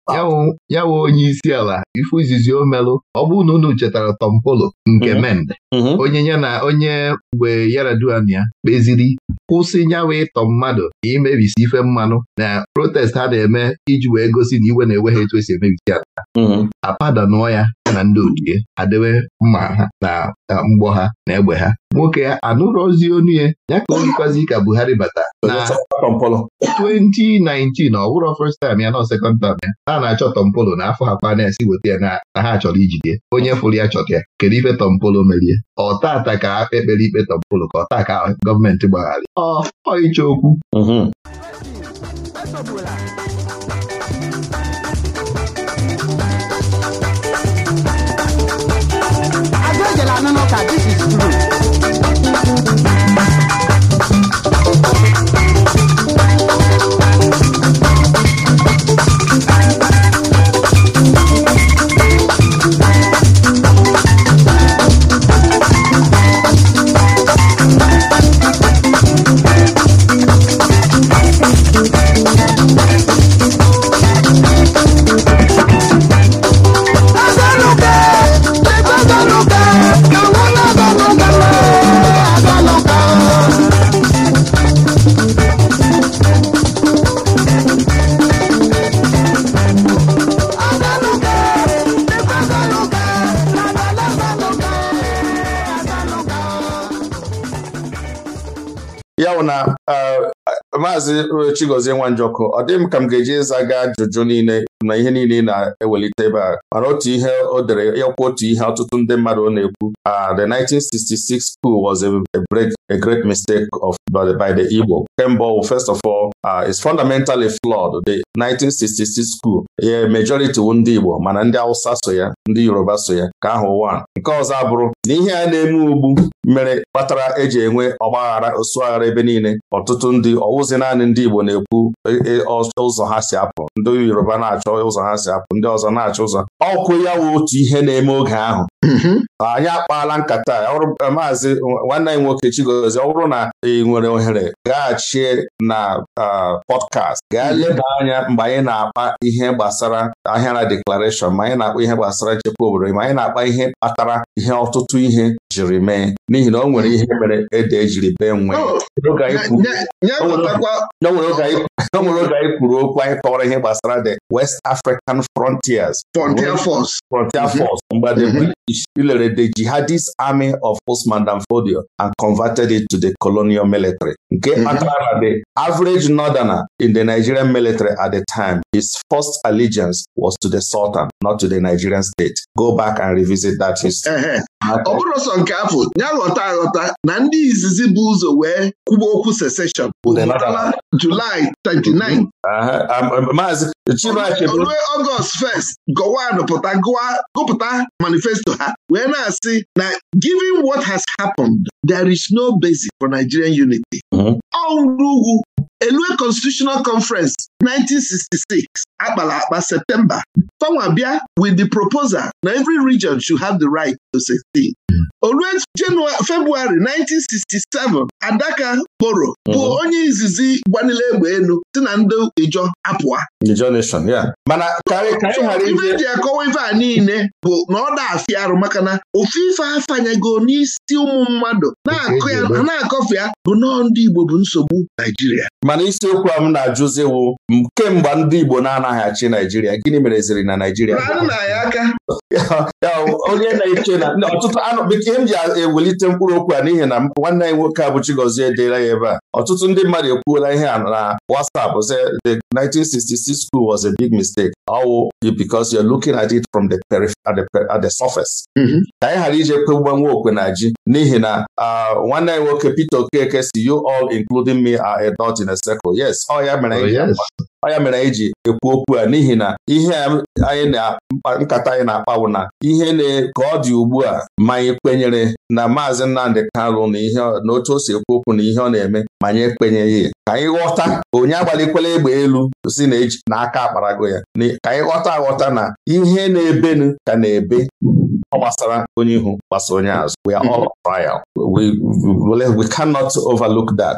ya wụ onye isi ala ifu izizi o omelụ ọ bụ na unu chetara Tom Polo nke mhm. Mende onye ya na onye mgbe Yar'Adua ya kpeziri kwụsị nyawa ịtọ mmadụ ka imebisi ife mmanụ na protest ha na-eme iji wee gosi na iwe na-ewe ha etu esi emebisi ala apadanụọ ya ya na ndị ochie adịwe mma ha na mgbọ ha na egbe ha nwoke ya anụrụ ozi onu ya ya ka ka Buhari bata na 2019 ọ bụrụ first time ya na second time ya na na-achọ Tompolo na afọ ha kwa na-esi weta ya na ha chọrọ ijide onye fụrụ ya chọta ya kedu ife Tompolo merie ọ tata ka ekpere ikpe Tompolo ka ọ taa ka gọọmenti gbagharị ọ ịcha okwu mhm. ọwụ na Maazị Chigozie Nwanjọkụ ọ dịghị m ka m ga-eji ịza gaa ajụjụ niile na ihe niile na-ewelite ebe a otu ihe o dere yakwa otu ihe ọtụtụ ndị mmadụ na-ekwu ah, the 1966 school was a break a great mistake of by the Igbo kemgbe first of all uh, ah, is fundamentally flawed the 1966 school ye majority wu ndị Igbo mana ndị Hausa so ya ndị Yoruba so ya ka ahụ a. nke ọzọ abụrụ na ihe a na-eme ugbu mere kpatara eji enwe ọgbaghara osuaghara ebe niile ọtụtụ ndị ọwụzi naanị ndị Igbo na-ekwu e, e, ụzọ ha si apụ ndị Yoruba na achọ na-achọ ụzọ ha si apụ ndị ọzọ na-achọ ụzọ ọkụ ya wụ otu ihe na-eme oge ahụ mhm. anyị akpaala nkata eh, maazị nwanne anyị nwoke Chigozie ọ bụrụ na ị nwere ohere gaghachi na ah, pọdkast gaa mhm. leba anya mgbe anyị na-akpa ihe gbasara ahịara deklarashọn ma anyị na-akpa ihe gbasara nchekwa obodo ma anyị na-akpa ihe kpatara ihe ọtụtụ ihe jiri mee n'ihi na o nwere ihe mere ede ejiri bee nwee oh, o nwere oge anyị kwuru okwu anyị kọwara ihe gbasara the West West African Frontiers Frontier Force Frontier mm-hmm. Force mgbe the mm-hmm. British the jihadist army of Osman Danfodio and converted it to the colonial military nke mm-hmm. kpatara the average northerner in the Nigerian military at the time his first allegiance was to the Sultan not to the Nigerian state go back and revisit that history uh-huh. ọ bụrụ sọ nke afọ ya ghọta aghọta na ndị izizi bụ ụzọ wee kwuba okwu secession Julaị 29 rue ọgọst 1st gọwan manifesto ha wee na-asị na given what has happened there is no basis for Nigerian unity mhm. ọ ugwu elue constitutional conference 1966 akpala akpa septemba fanwa bịa with the proposal na every region should have the right to 16 olue februari 1967 adaka boro bụ mhm. onye izizi gbanile egbe elu si na ndị ijo apụa ibe ji akọwa ife a niile bụ na ọ da arụ maka na ofu ife afanyego n'isi ụmụ mmadụ na-akọfe ya bụ nọọ ndị Igbo bụ nsogbu Naijiria mana isiokwu a m na-ajụziwu kemgbe ndị Igbo na-anaghị achị Naijiria gịnị mere ziri na Naijiria onye na-eche na ọtụtụ anụ bekee m ji ewelite mkpụrụ okwu a n'ihi na nwanne anyị nwoke a bụ Chigozie edeela ya ebe a ọtụtụ ndị mmadụ ekwuola ihe a na WhatsApp sị the 1966 school was a big mistake ọwụ because you're looking at it from the at the surface mm-hmm. ka anyị ghara ije kpegbanwe okwe na ji n'ihi na ah, nwanne anyị nwoke Peter Okeke si you all including me are a dot in a sekụl yes ọ ya mere oh, anyị e ji ekwu okwu a n'ihi na ihe anyị na nkata anyị na-akpa bụ na ihe ka ọ dị ugbu a ma anyị kwenyere na maazị Nnamdị Kanụ na ihe na otu o si ekwu okwu na ihe ọ na-eme ma anyị ekwenyeghị ka anyị ghọta onye agbalikwela egbe elu si na aka akparago ya ka anyị ghọta aghọta na ihe na-ebenu ka na-ebe ọ gbasara onye ihu gbasara onye azụ we are all mhm. trial we, we, cannot overlook that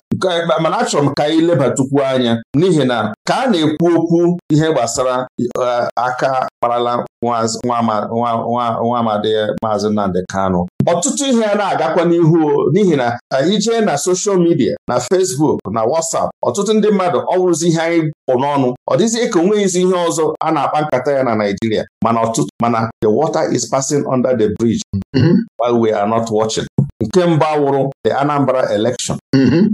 mana achọrọ m ka anyị lebatukwu anya n'ihi na ka a na-ekwu okwu ihe gbasara eh, aka kparala nwa amadi maazị Nnamdi Kanụ ọtụtụ ihe a na-agakwa n'ihu n'ihi na anyị eh, jee na soshal midia na fesbuk na wasap ọtụtụ ndị mmadụ ọ bụrụzi ihe anyị pụ n'ọnụ ọ dịzie ka onweghịzi ihe ọzọ a na-akpa nkata ya na Naijiria mana ọtụtụ mana the water is passing under the bridge mm-hmm. while we are not watching nke mbụ awụrụ the Anambra election mm-hmm.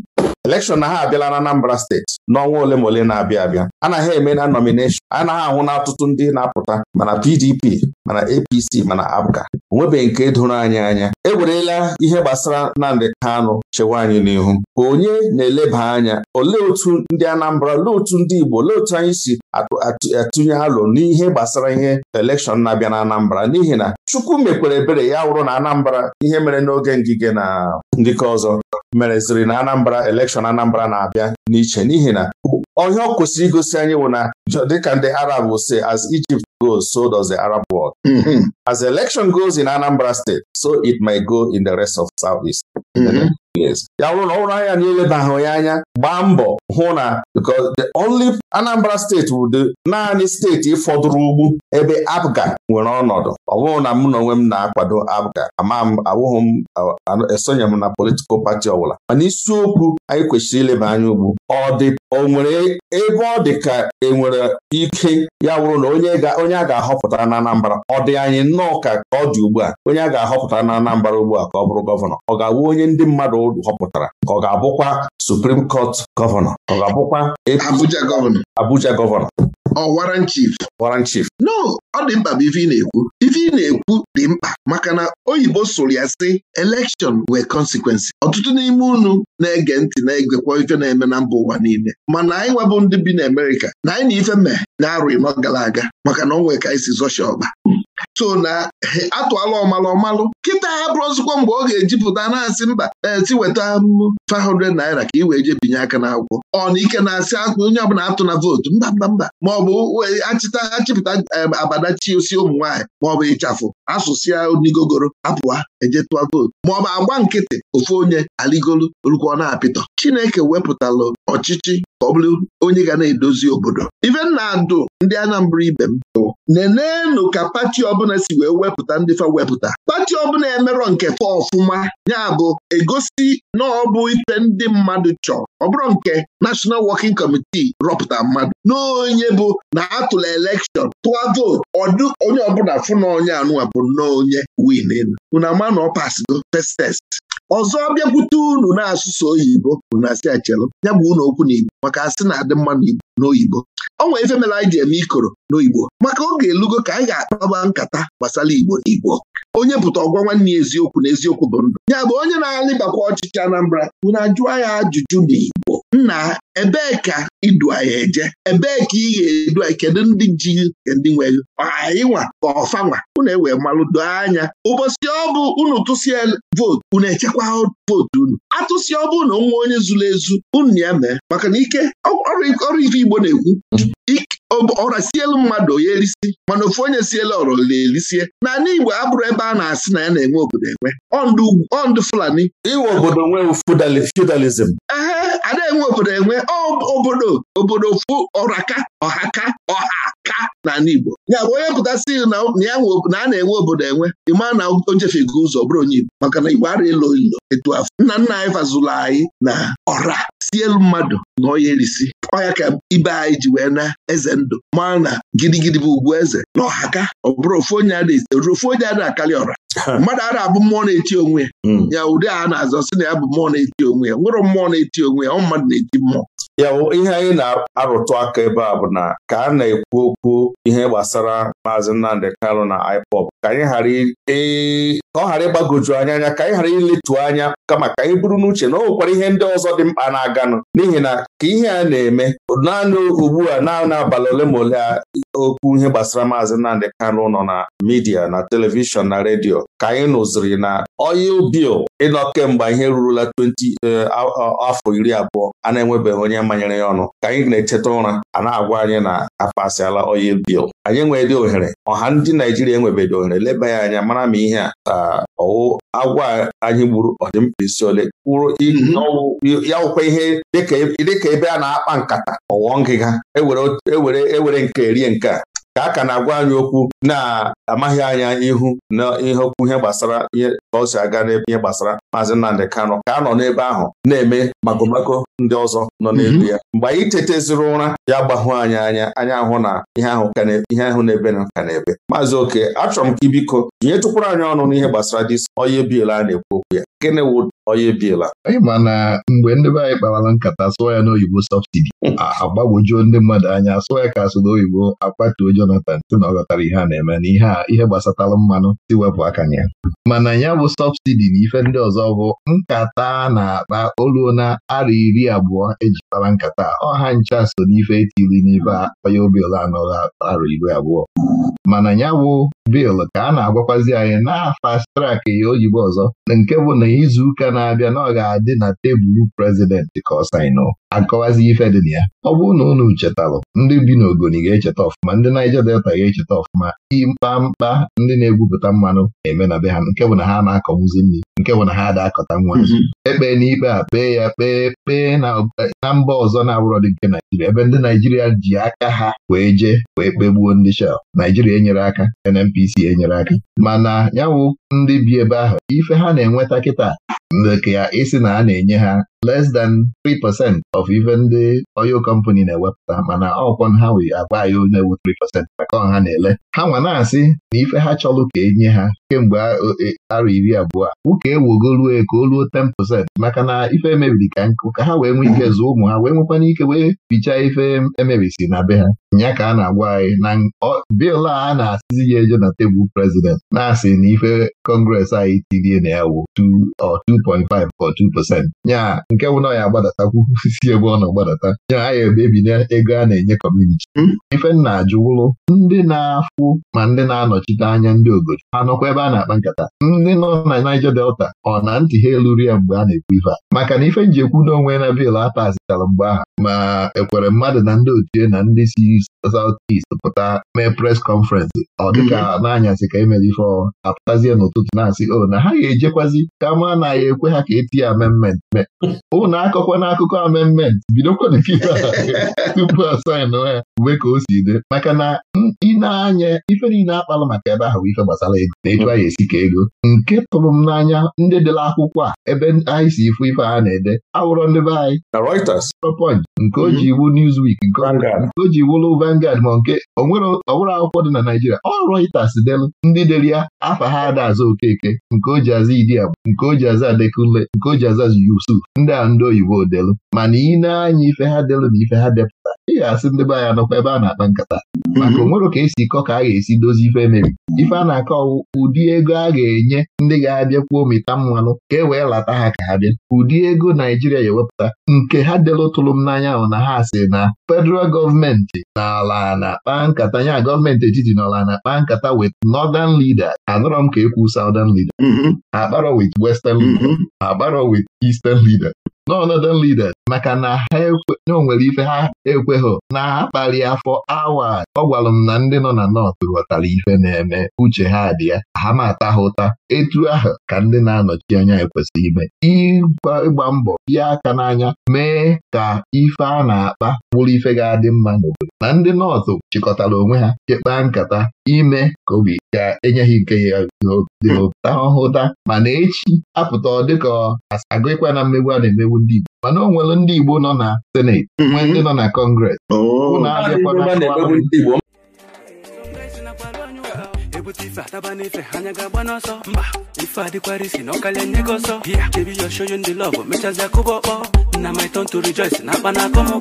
elekshọn na ha abịala na Anambra steeti n'ọnwa ole ma ole na-abịa abịa anaghị eme na nomineshọn anaghị ahụ na ọtụtụ ndị na-apụta mana PDP mana APC mana APGA onwebeghị nke doro anyị anya ewerela ihe gbasara Nnamdị Kanụ chewa anyị n'ihu onye na-eleba anya olee otu ndị Anambra olee otu ndị Igbo olee otu anyị si atụnye alụ n'ihe gbasara ihe elekshọn na-abịa na Anambra n'ihi na Chukwu mekwere ebere ya wụrụ na Anambra ihe mere n'oge ndị ikike na ndịka ọzọ mereziri na Anambra elekshọn Anambra na-abịa n'iche n'ihi na ọhịa ọ kwụsịrị igosi anyị bụ na dịka ndị Arab say as Egypt goes so does the Arab world. Mhm. As election goes in Anambra State so it may go in the rest of south east. Mm-hmm. ya wụrụ na ọ bụrụ anya na ilebagha ya anya gbaa mbọ hụ na because the only Anambra steeti dị naanị steeti fọdụrụ ugwu ebe Abga nwere ọnọdụ ọ na mụ na onwe m na-akwado Abga ama m awụghị m esonye m na politikal pati ọbụla mana isiokwu anyị kwesịrị ileba anya ugbu ọ dị o nwere ebe ọ dị ka enwere ike ya wụrụ na onye a ga-ahọpụtara na Anambra ọ dị anyị nnọọ ka ọ dị ugbu a onye a ga-ahọpụtara na anambara ugbu a ka ọ bụrụ gọvanọ ọ ga-awụ onye onye ndị mmadụ ụdụ họpụtara ka ọ ga-abụkwa Supreme kọt gọvanọ ọ ga-abụkwa Abuja gọvanọ Abuja gọvanọ no ọ dị mkpa bụ ife ị na-ekwu ife ị na-ekwu dị mkpa maka na oyibo sụrụ ya sị election nwe consequences ọtụtụ n'ime unu na-ege ntị na-egekwa ife na-eme na mba ụwa niile mana anyị nwebụ ndị bi na Amerịka na anyị na ife mee na arụ n'ọ gara aga maka na ọ nwere ka anyị si so na atụala ọmalụ ọmalụ kịta ha bụrụzikwa mgbe ọ ga-ejipụta na-asị mba eti weta 500 naira ka ị wee jebinye binye aka n'akwụkwọ ọ na ike na-asị onye ọbụla atụ na vootu mba mba mba maọbụ achịta achịpụta e, abadachi osi ụmụ nwaanyị maọbụ ịchafụ asụsụ ya onigogoro apụwa eje tụọ vootu maọbụ agba nkịtị ofu onye aligolu olukwa ọ na-apịtọ Chineke wepụtalụ ọchịchị ka ọ bụrụ onye ga na-edozi obodo ife na-adụ ndị Anambra ibe m bụ nenenụ ka pati ọbụla si wee wepụta ndị fa wepụta pati ọbụla emerọ nke fa ọfụma ya bụ egosi na ọ bụ ife ndị mmadụ chọrọ ọ bụrụ nke National Working Committee rọpụta mmadụ n'onye bụ na atụla elekshọn tụọ vootu ọdụ onye ọbụla fụ na onye anụwa bụ nnọọ onye win elu unu ama na ọ test ọzọ bịakwute unu na-asụsụ oyibo bụ na asị achelu ya bụ ụlọ okwu igbo maka asị na-adị mma n'Igbo n'oyibo ọ nwere ife mere anyị ji eme ikoro n'oyibo maka oge elugo ka anyị ga-akpaba nkata gbasara Igbo n'Igbo onye pụta ọgwa nwanne ya eziokwu na eziokwu bụ ndụ ya bụ onye na-alịbakwa ọchịchị Anambra na ajụọ ya ajụjụ n'Igbo nna ebee ka idu anyị eje ebee ka ị ga-edu anyị kedu ndị ji ndị nweghị ịnwa nwa ka ọfanwa unu ewee malụdo anya ụbọchị ọ bụ unu tụsịa vootu unu echekwa vootu unu atụsị ọbụ na nwa onye zuru ezu unu ya mee maka na ike ọrụ ife Igbo na-ekwu mm. ọra sielu mmadụ onye erisi mana ofu onye siela ọrọ na-erisie Na Igbo abụrụ ebe a na-asị na ya na-enwe obodo enwe ọndụ Fulani iwe obodo nwee Ehe. a na-enwe obodo enwe obodo obodo fụ ọraka ọhaka ọha ka n'ala Igbo ya bụ onye pụtasị na a na-enwe obodo enwe ịma na o ụzọ bụrụ onye Igbo maka na Igbo ara elo ilo etu afọ nna nna anyị fazụlụ anyị na ọra si elu mmadụ na ọya erisi ọya ka ibe anyị ji wee na eze ndụ mara na gidigidi bụ ugwu eze na ọhaka ọ bụrụ ofu onye ada ofu onye ada akarị ọra mmadụ a abụ mmụọ na-eti onwe hmm. ya ụdị a na-azọ sị na ya bụ mmụọ na-eti onwe ya nwere mmụọ na-eti onwe ya ọ mmadụ na-eti mmụọ ya bụ ihe anyị na-arụtụ aka ebe a bụ na ka a na-ekwu okwu ihe gbasara maazị Nnamdi Kanụ na ipop ka anyị ghara ka ọ ghara ịgbagoju anya anya ka anyị ghara iletu anya kama ka anyị buru n'uche na ọ nwekwara ihe ndị ọzọ dị mkpa na-aganụ n'ihi na ka ihe a na-eme naanị ugbu a naanị abalị ole ma ole a okwu ihe gbasara maazị Nnamdị Kanụ nọ na midia na telivishọn na redio ka anyị nụziri na oil bill ịnọ kemgbe ihe rurula 20 e, afọ iri abụọ a na-enwebeghị onye manyere ya ọnụ ka anyị na-echeta ụra a na-agwa anyị na apasịala oil bill anyị dị ohere ọha ndị Naijiria enwebedị ohere leba ya anya mara ma ihe a ọwụ agwa anyị gburu isi ole kwuru mhm. ya wụkwa ihe e, dịka ebe a na-akpa nkata ọwọ ngịga ewere e nke rie nke a ka a ka na-agwa anyị okwu na-amaghị anya ihu na ihe okwu ihe gbasara ihe ka ọ si aga n'ebe ihe gbasara maazị Nnamdị Kano ka a nọ n'ebe ahụ na-eme magomago ndị ọzọ nọ mhm. n'ebe ya mgbe anyị tetaziri ụra ya gbahụ anyị anya anya ahụ na ihe ahụ ihe ahụ na-ebe na ka na-ebe maazị oke achọrọ m ka ibiko tinye tụkwara anyị ọnụ n'ihe gbasara dis onye biela a na-ekwu okwu ya gịnị wụ onye biela anyị ma na mgbe ndị be anyị kparala nkata sụọ ya n'oyibo sọbsidi hmm. agbagwojuo ndị mmadụ anya sụọ ya ka asụ oyibo akpatuo Jonathan si na ọ ghọtara ihe a na-eme na ihe a ihe mmanụ si wepụ aka na ya mana ya bụ sọbsidi na ife ndị ọzọ bụ nkata na-akpa oluo na ara iri abụọ eji kpara nkata ọha ncha so n'ife etiri n'ife onye obiela anọghị ara iri abụọ mana ya bụ biil ka a na-agwakwazi anyị na fast trak ya oyibo ọzọ nke bụ na izu ụka na-abịa na ọ ga-adị na tebụl prezidentị ka ọ akọwazi ife dị na ya ọ bụrụ na unu chetalụ ndị bi n'ogoni ga-echeta ọfụma ndị Naija Delta ga-echeta ọfụma mkpa mkpa ndị na-egwupụta mmanụ na-eme na be ha nke bụ na ha na-akọwuzi nri nke bụ na ha ada akọta nwa mhm. ekpe n'ikpe a kpee ya kpee kpee na mba ọzọ na-abụrọ dị nke Naijiria ebe ndị Naijiria ji aka ha wee jee wee kpegbuo ndị Shell Naijiria enyere aka NNPC enyere aka mana yawụ ndị bi ebe ahụ ife ha na-enweta kịta nke ya ịsị na a na-enye ha less than 3% of even ndị oil company na-ewepụta mana ọkwọ ha wee agwa anyị onye ewu 3% maka ọha na-ele ha nwa na-asị na ife ha chọrọ ka enye ha kemgbe e, ara iri abụọ ụka ewugo ka o ruo 10% maka na ife emebiri ka nkụ ka ha wee nwee ike zụọ ụmụ ha wee nwekwana ike wee bichaa ife e si na be ha ya ka a na-agwa anyị na bil a na-asịzi ya eje na tebụl prezident na-asị na ife kọngres anyị tirie na ya wụ 2.5 or nke wụ na ya agbadatakwu si ebe ọ na agbadata ya anyị ebebi na ego a na-enye kọmuniti hmm? ife m ndị na-afụ ma ndị na-anọchite anya ndị obodo ha nọkwa ebe a na-akpa nkata ndị nọ na Niger Delta ọ na ntị ha eluru ya mgbe a na-ekwu ife a maka na ife njikwu n'onwe na biil atazitara mgbe ahụ ma ekwere mmadụ na ndị otu na ndị si South East pụta mee pres kọnferensị ọ dịka mhm. n'anyasị ka emere ife ọ apụtazie n'ụtụtụ na-asị o oh, na ha ga-ejekwazi ka ma na ekwe ha ka eti ya amendment mee ụnụ oh, na akụkọ amendment bidokwana ife tupu asaịnụ ya uwe ka o si dị maka na ị na-anya ife niile akpalụ maka ebe ahụ ife gbasara ego na etu a ya esi ka ego nke tụrụ m n'anya ndị ndị dere akwụkwọ a ebe anyị si ifu ife a na-ede awụrọ ndị be anyị Reuters nke o mhm. ji iwu Newsweek nke o ji iwulu Vangard ma nke onwere akwụkwọ dị na Naijiria. ọ Reuters delu ndị dere ya afa ha ada aza Okeke nke o ji aza Idiagbo nke o ji aza Adekunle nke o ji aza Yusuf ndị a ndị oyibo delu mana ị na-anya ife ha delu na ife ha depụta ị ga-asị ndị be anyị nọkwa ebe a na-akpa nkata mhm. maka o nwere ka esi kọ ka a ga-esi dozie ife mere. ife a na-akọ ụdị ego a ga-enye ndị ga-abịa kwuo mmanụ ka e wee lata ha ka ha bịa ụdị ego Naijiria ga-ewepụta nke ha delụtụrụ m n'anya ahụ na ha si na federal gọọmenti n'ala na-akpa nkata nya gọọmenti etiti n'ala na-akpa nkata wit northern leader anọrọ m ka ekwu southern leader mhm. akparọ wit western leader mhm. akparọ wit eastern leader n'ọnọdụ leader maka na ha onwere ife ha ekweghị na ha kpali afọ awa ọ gwara m na ndị nọ na nọt ghọtara ife na-eme uche ha dị ya ha ma ata ha ụta etu ahụ ka ndị na-anọchi anya ekwesịrị ime ịgba mbọ bịa aka n'anya mee ka ife a na-akpa bụrụ ife ga-adị mma n'obodo na ndị nọọtụ chịkọtara onwe ha chekpaa nkata ime ka obi ga-enye ha nke ya dị obi ta ọhụta mana echi apụta ọ dịka agụ ịkwa na mmegbu a na-emegbu ndị Igbo mana ọ nwere ndị Igbo nọ na seneti mm-hmm. nwee ndị nọ na kọngres oh. unu abịakwana ebute ife ataba n'ife anya ga-agba n'ọsọ mba ife adịkwara isi na ọkalịa nye gị ọsọ bịa debi ya show you ndị love mechazi akụba ọkpọ oh. na my turn to rejoice na akpa na oh.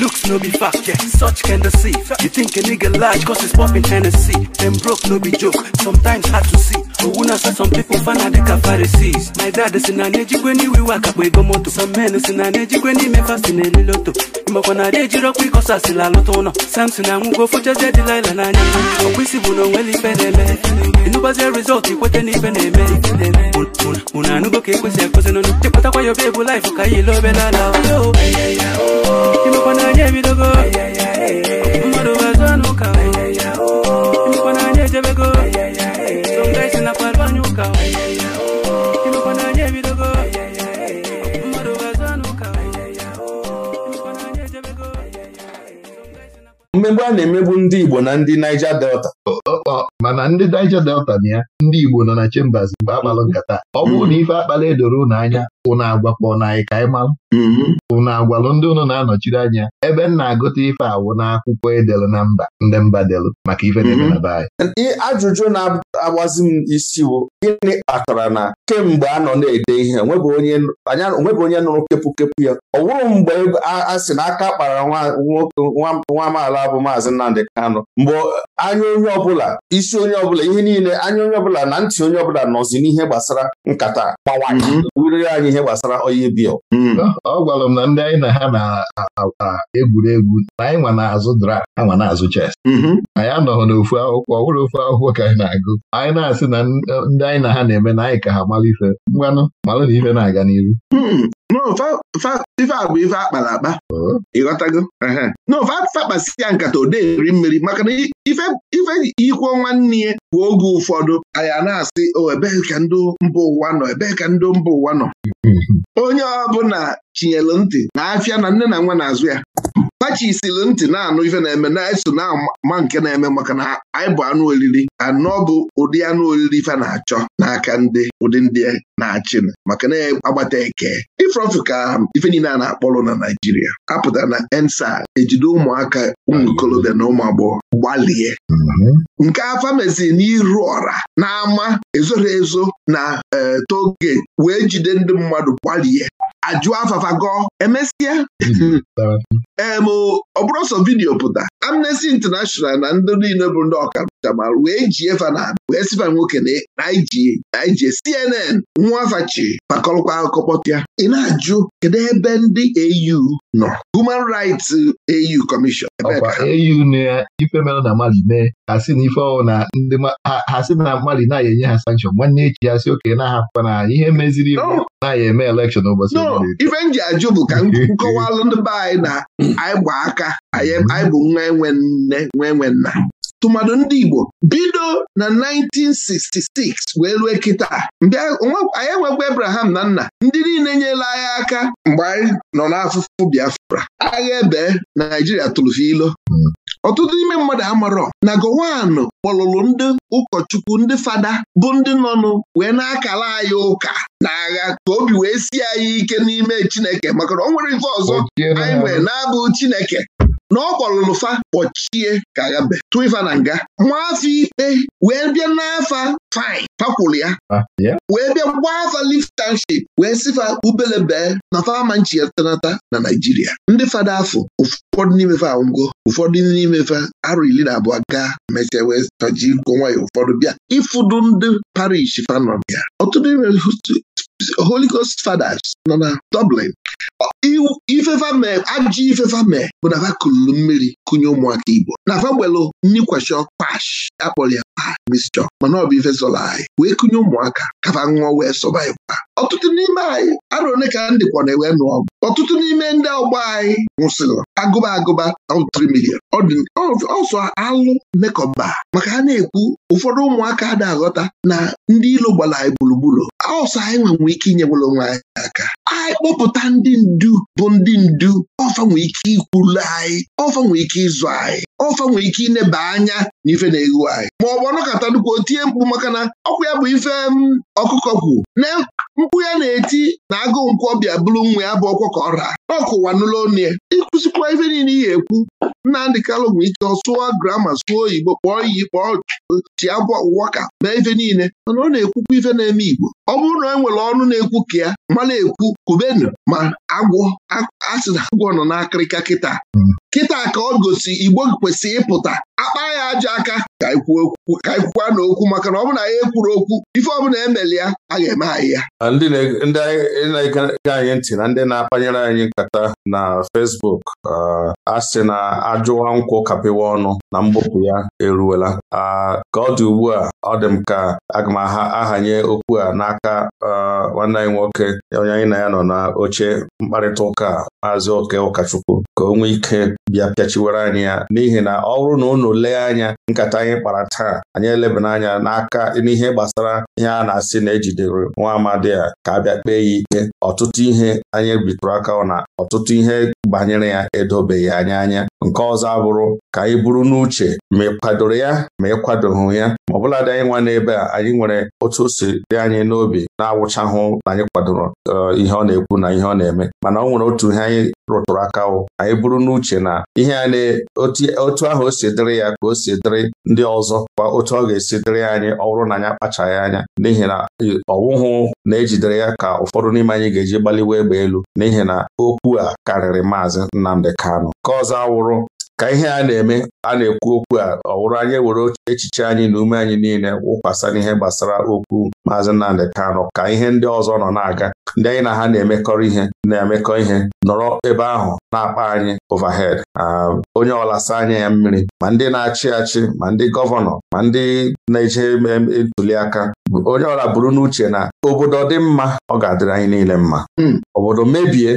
Looks no be fact, yet such can deceive You think a nigga large cause he's popping Hennessy Them broke no be joke, sometimes hard to see Owuna say some people fan are the Pharisees My dad is in an age when we work up we go moto Some men is in an age when me fast in a loto Imoko na deji rock we cause asila loto no Samson na mugo fucha zedi laila na nyanyo Okwisi buno weli n'ife na na-eme obe ka mmegbu a na-emegbu ndị Igbo na ndị Niger Delta mana ndị Niger Delta na ya ndị Igbo nọ na Chambers mgbe akpalụ nkata ọ bụrụ mm-hmm. na ife akpala edoro ụnụ anya ụnụ agwakpọ na anyị ka anyị malụ ụnụ mm-hmm. agwalụ ndị ụnụ na-anọchiri anya ebe m na-agụta ife awụ akwụkwọ edelu na mba ndị mba delu maka ife na mm-hmm. na be anyị. agbazi m isi bụ gịnị kpatara na kemgbe a nọ na-ede ihe onwebụ onye nụrụ kepụkepụ ya ọ bụrụ mgbe a sị na aka kpara nwa amaala bụ maazị Nnamdị Kanụ mgbe anya onye ọbụla isi onye ọbụla ihe niile anya onye ọbụla na ntị onye ọbụla nọzi n'ihe gbasara nkata gbawairiri anyị ihe gbasara onye bia ọ hmm. gwara m na ndị anyị na ha na-egwuregwu na anyị nwa na-azụ dra anwa na-azụ ches hmm. anyị anọghị n'ofu akwụkwọ ọ bụrụ ofu akwụkwọ ka anyị na-agụ anyị na-asị na ndị anyị na ha na-eme na anyị ka ha mara ife mgbanụ malụ na ife na-aga n'ihu hmm. ife a bụ ife akpara akpa ịghọtago n'ofe akpakpasị ya nkata ode eri mmiri maka na ife ikwo nwanne ya bụ oge ụfọdụ anyị a na-asị o ebee ka ndị mba ụwa nọ ebee ka ndị mba ụwa nọ hmm. onye ọbụla chinyelu ntị na afịa na nne na nwa na-azụ ya kpachisiri ntị na-anụ ife na-eme na-eso na-ama nke na-eme maka na anyị bụ anụ oriri anọ bụ ụdị anụ oriri ife na-achọ n'aka ndị ụdị ndị na-achị maka na agbata eke ifrofu ka ife niile a na-akpọrọ na Naijiria apụtara na ensa ejide ụmụaka ụmụ ikolobịa na ụmụ agbọghọ gbalie mm-hmm. nke afa meziri n'iru ọra ama ezoro ezo na eh, toge wee jide ndị mmadụ gbalie ajụọ afafa gọọ emesịa ọ bụrụ sọ vidiyo pụta Amnesty International na ndị niile bụ ndị ọkacha ma wee jie fa na wee sifa nwoke na ije CNN nwa afachi fakọlkwa akụkọ pịa. ị na-ajụ kedu ebe ndị AU nọ Human Rights AU Commission au ife mere na Mali mee ha si na ife na ndị ha si na Mali na-aya enye ha sankshọn nwanne echi ya si okenye na-ahapụkwa na ihe meziri iwu na-aya eme elekshọn ụbọchị ife m ji ajụ bụ ka nkọwalụ ndị be anyị na anyị gba aka anyị bụ nwa enwe nne nwa enwe nna tụmadụ ndị Igbo bido na 1966 wee rue kịta anyị enwekwa Abraham na nna ndị niile nyela anyị aka mgbe anyị nọ n'afụfụ Biafra agha ebe Naijiria tụrụ ilo hmm. ọtụtụ ime mmadụ amarọ na Gowon kpọlụrụ ndị ụkọchukwu ndị fada bụ ndị nọnụ wee na-akala anyị ụka na agha ka obi wee si anyị ike n'ime Chineke maka na o nwere nke ọzọ anyị nwee na-abụ Chineke na ọ kwalụlụ fa kpọchie ka ya be tụ ifa na nga nwafọ ikpe wee bịa n'afa fine fakwụrụ ya ah, wee bịa gbaa afa liftanship wee sifa fa ubele bee na fama nchiyatanata na Naijiria ndị fada afọ ụfọdụ n'ime fa ụfọdụ n'ime fa arụ iri na abụọ gaa mechaa wee taji nwayọ ụfọdụ bịa ịfụdụ ndị parish fanọ ya ọtụtụ Holy Ghost Fathers nọ na Dublin. Ifefa mee ajọ ifefa mee bụ na ha kuluru mmiri kụnye ụmụaka Igbo na fagbelu nnikwesho pash akpọrọ ya pa mistọ mana ọ bụ ife anyị wee kụnye ụmụaka kaba ṅụọ wee ịkwa. ọtụtụ n'ime anyị arụ one ka ndị na-ewe nụ ọgụ ọtụtụ n'ime ndị ọgbọ anyị nwụsịrị agụba agụba ọtụtụ ọsọ alụ mekọba maka ha na-ekwu ụfọdụ ụmụaka ada aghọta na ndị ilo gbara anyị gburugburu ọsọ anyị nwenwe ike inye nwere anyị aka anyị kpọpụta ndị ndu bụ ndị ndu ọfa nwee ike ikwulu anyị ọfa nwee ike ịzụ anyị ọfa nwee ike ineba anya na ife na-egwu anyị ma ọ bụ ọnọkọta nnukwu otie mkpu maka na ọkụ ya bụ ife ọkụkọ kwu na mkpu ya na-eti na agụụ nkwụ ọbịa bụrụ nwa ya bụ ọkwa ka ọ raa ọkụwa n'ụlọ onye ịkụzikwa ife niile ihe ekwu Nnamdị Kalụ nwee ike sụọ grama sụọ oyibo kpọọ iyi kpọọ chi abụ ọwụwa ka mee ife niile mana ọ na-ekwukwa ife na-eme Igbo ọ bụrụ na e nwere ọnụ na-ekwu ka ya mana ekwu kubenu ma agwọ asị na agwọ nọ n'akịrịka kịta hmm. kịta ka ọ gosi igbo kwesịrị ịpụta akpa ya aja aka ka ekwukwa na okwu maka na ọ bụla na ya ekwuru okwu ife ọbụla emeli ya a ga-eme anyị ya ndị na-ege anyị ntị na ndị na-akpanyere anyị nkata na fesbuk uh, asị na ajụwa nkwụ kapịwa ọnụ na mbupụ ya eruwela uh, ka ọ dị ugbu a ọ dị m ka aga m ahanye okwu a n'aka uh, nwanne anyị nwoke onye anyị na ya nọ na oche mkparịta ụka maazị oke ụkọchukwu ka o nwee ike bịa pịachiwere anyị ya n'ihi na ọ bụrụ na unu lee anya nkata anyị kpara taa anyị elebana anya n'aka n'ihe gbasara ihe a na-asị na ejidere nwa amadi a ka a bịa kpee ya ike ọtụtụ ihe anyị bitụrụ aka na ọtụtụ ihe banyere ya edobeghị anya anya nke ọzọ abụrụ ka anyị buru n'uche ma ị kwadoro ya ma ị kwadoghị ya ma ọbụladị anyị nwa n'ebe a anyị nwere otu o si dị anyị n'obi na-awụchahụ na anyị kwadoro eh, ihe ọ na-ekwu na ihe ọ na-eme mana ọ nwere otu ihe anyị rụtụrụ aka anyị bụrụ n'uche na ihe a na otu ahụ o si dịrị ya ka o si dịrị ndị ọzọ kwa otu ọ ga-esi dịrị anyị ọhụrụ na anyị akpachaghị anya n'ihi na ọwụhụ na-ejidere ya ka ụfọdụ n'ime anyị ga-eji gbaliwa egbe elu n'ihi na okwu a karịrị maazị Nnamdi Kano ka ọzọ awụrụ ka ihe a na-eme a na-ekwu okwu a ọ wụrụ anyị were echiche anyị na ume anyị niile wụkwasa n'ihe gbasara okwu maazị Nnamdị kano ka ihe ndị ọzọ nọ na-aga ndị anyị na ha na-emekọrọ ihe na-emekọ ihe nọrọ ebe ahụ na-akpa anyị overhead um, onye ọlasa anya ya mmiri ma ndị na-achị achị ma ndị gọvanọ ma ndị na-eje ntuliaka onye ọla buru n'uche na obodo dị mma ọ ga-adịrị anyị niile mma hmm. obodo mebie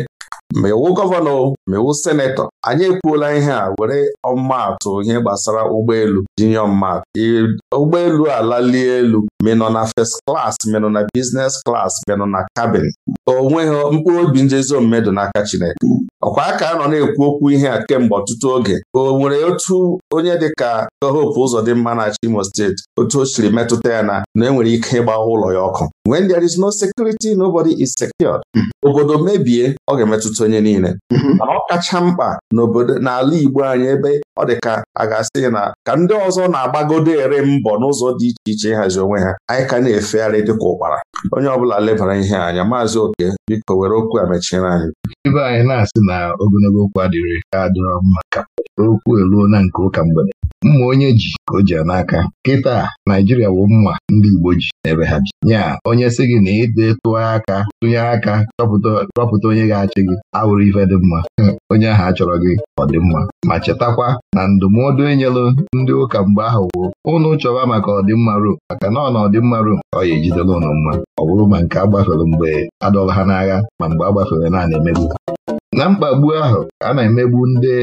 ma iwu gọvanọ ma iwu senetọ anyị ekwuola ihe a were ọmmatụ ihe gbasara ụgbọelu jinye ọmmatụ ụgbọelu alalie elu menọ na first klas menọ na biznes klas menọ na kabin onweghị mkpụrụ obi njezi omume n'aka Chineke ọkwa aka a nọ na-ekwu okwu ihe a kemgbe ọtụtụ oge o nwere otu onye dịka Hope Uzodimma na Imo steeti otu o siri metụta ya na na enwere ike ịgba ụlọ ya ọkụ when there is no security nobody is secured hmm. obodo mebie ọ ga-emetụta onye niile hmm. mana ọ kacha mkpa n'obodo n'ala Igbo anyị ebe ọ dị ka a ga-asị na ka ndị ọzọ na-agbagodo ere mbọ n'ụzọ dị iche iche ịhazi onwe ha anyị ka na-efegharị dịka ụkpara onye ọbụla lebara ihe anya maazị oke biko were okwu a mechiere anyị ebe anyị na-asị na ogologo okwu adịrị ka adịrọ mma ka okwu eruo na nke ụka mgbede mma onye ji ka o ji n'aka kịta Naijiria bụ mma ndị Igbo ji n'ebe ha ji ya onye sị gị na ịdị tụọ aka tụnye aka chọpụta onye ga-achị gị awụrụ ife dị mma onye ahụ a chọrọ gị ọ dị mma ma chetakwa na ndụmọdụ ndụmọdụ enyelụ ndị ụka mgbe ahụ woo ụnụ chọwa maka ọdịmma Rom maka na ọna na ọdịmma Rom ọ ya ejidela ụnụ mma ọ bụrụ ma nke agbafere mgbe adọla ha n'agha ma mgbe agbafere na na-emegbu na mkpagbu ahụ a na-emegbu ndị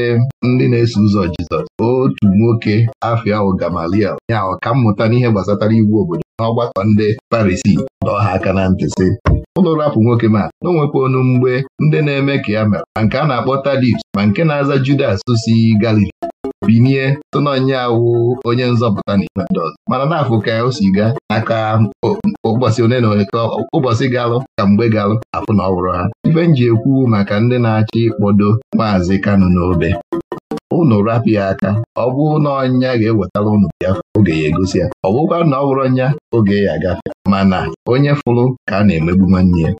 ndị na-eso ụzọ Jizọs otu nwoke afia ugamalia ya mmụta n'ihe gbasatara iwu obodo n'ọgbakọ ndị Parisi dọọ ha aka na ntị sị ụlọ rapụ nwoke ma na onwekwa onu mgbe ndị na-eme ka ya mere ma nke a na-akpọ Tadius ma nke na-aza Judas si Galili binie tononye awụ onye nzọpụta n'ime ndị ọzọ mana na-afụ ka o si gaa aka ụbọchị one na one ka ụbọchị galụ ka mgbe galụ afụ na ọwụrụ ha ibe m ji ekwu maka ndị na-achọ ịkpọdo maazị Kanu n'obe unu rapụ ya aka ọ bụ na ọnya ga-ewetara ụnụ bịa oge ya egosi ya ọ bụkwa na ọ bụrụ ọnya oge ya agafe mana onye fụrụ ka a na-emegbu nwanne ya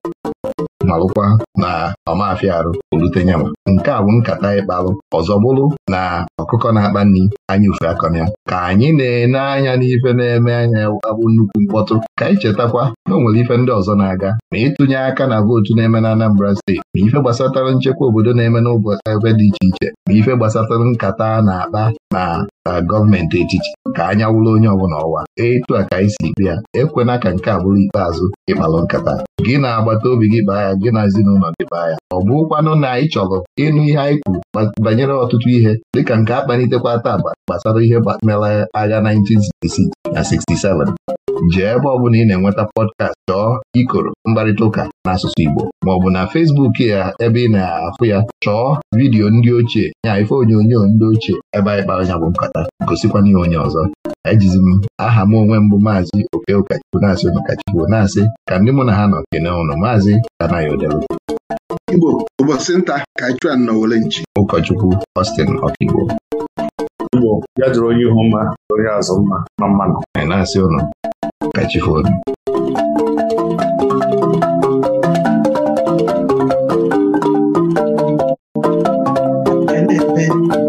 nọrụkwa na ọmafịa arụ olute nke a bụ nkata ịkpalụ ọzọ bụrụ na ọkụkọ na-akpa nri anya ufe ya ka anyị na-ene anya n'ife na-eme anya abụ nnukwu mkpọtụ ka anyị chetakwa na o nwere ife ndị ọzọ na-aga ma ịtụnye aka na vootu na-eme na Anambra steeti ma ife gbasatara nchekwa obodo na-eme n'ụbọchị ebe dị iche iche ma ife gbasatara nkata na-akpa na gọọmenti etiti ka anya wụrụ onye ọbụla ọwa etu a ka anyị si bịa ya ekwena ka nke a bụrụ ikpeazụ ịkpalụ nkata gị na agbata obi gị kpaa ya gị na ezinụlọ dị ya, anya ọ ụkwanụ na anyị chọrọ ịnụ ihe anyị kwuru banyere ọtụtụ ihe dịka nke akpalitekwa taa gbasara ihe mere agha 1966 na 67 jee ebe ọ bụla ị na-enweta pọdkast chọọ ikoro mkparịta ụka n'asụsụ Igbo maọbụ na fesbuk ya ebe ị na-afụ ya chọọ vidiyo ndị ochie ya ife onyonyo ndị ochie ebe anyị kpara nya bụ nkata gosikwana ihe onye ọzọ ejizi m aha m onwe mbụ maazị oke ụkachukwu na-asị ụnụ kachukwu na-asị ka ndị mụ na ha nọ kene ụnụ maazị Tanayo Delu Igbo ụbọchị nta ka chuan nọwere nchi ụkọchukwu ostin Ọkigbo Igbo ya jụrụ onye ihu mma onye azụ mma na mmanụ na-asị ụnụ aaeea ta aaaa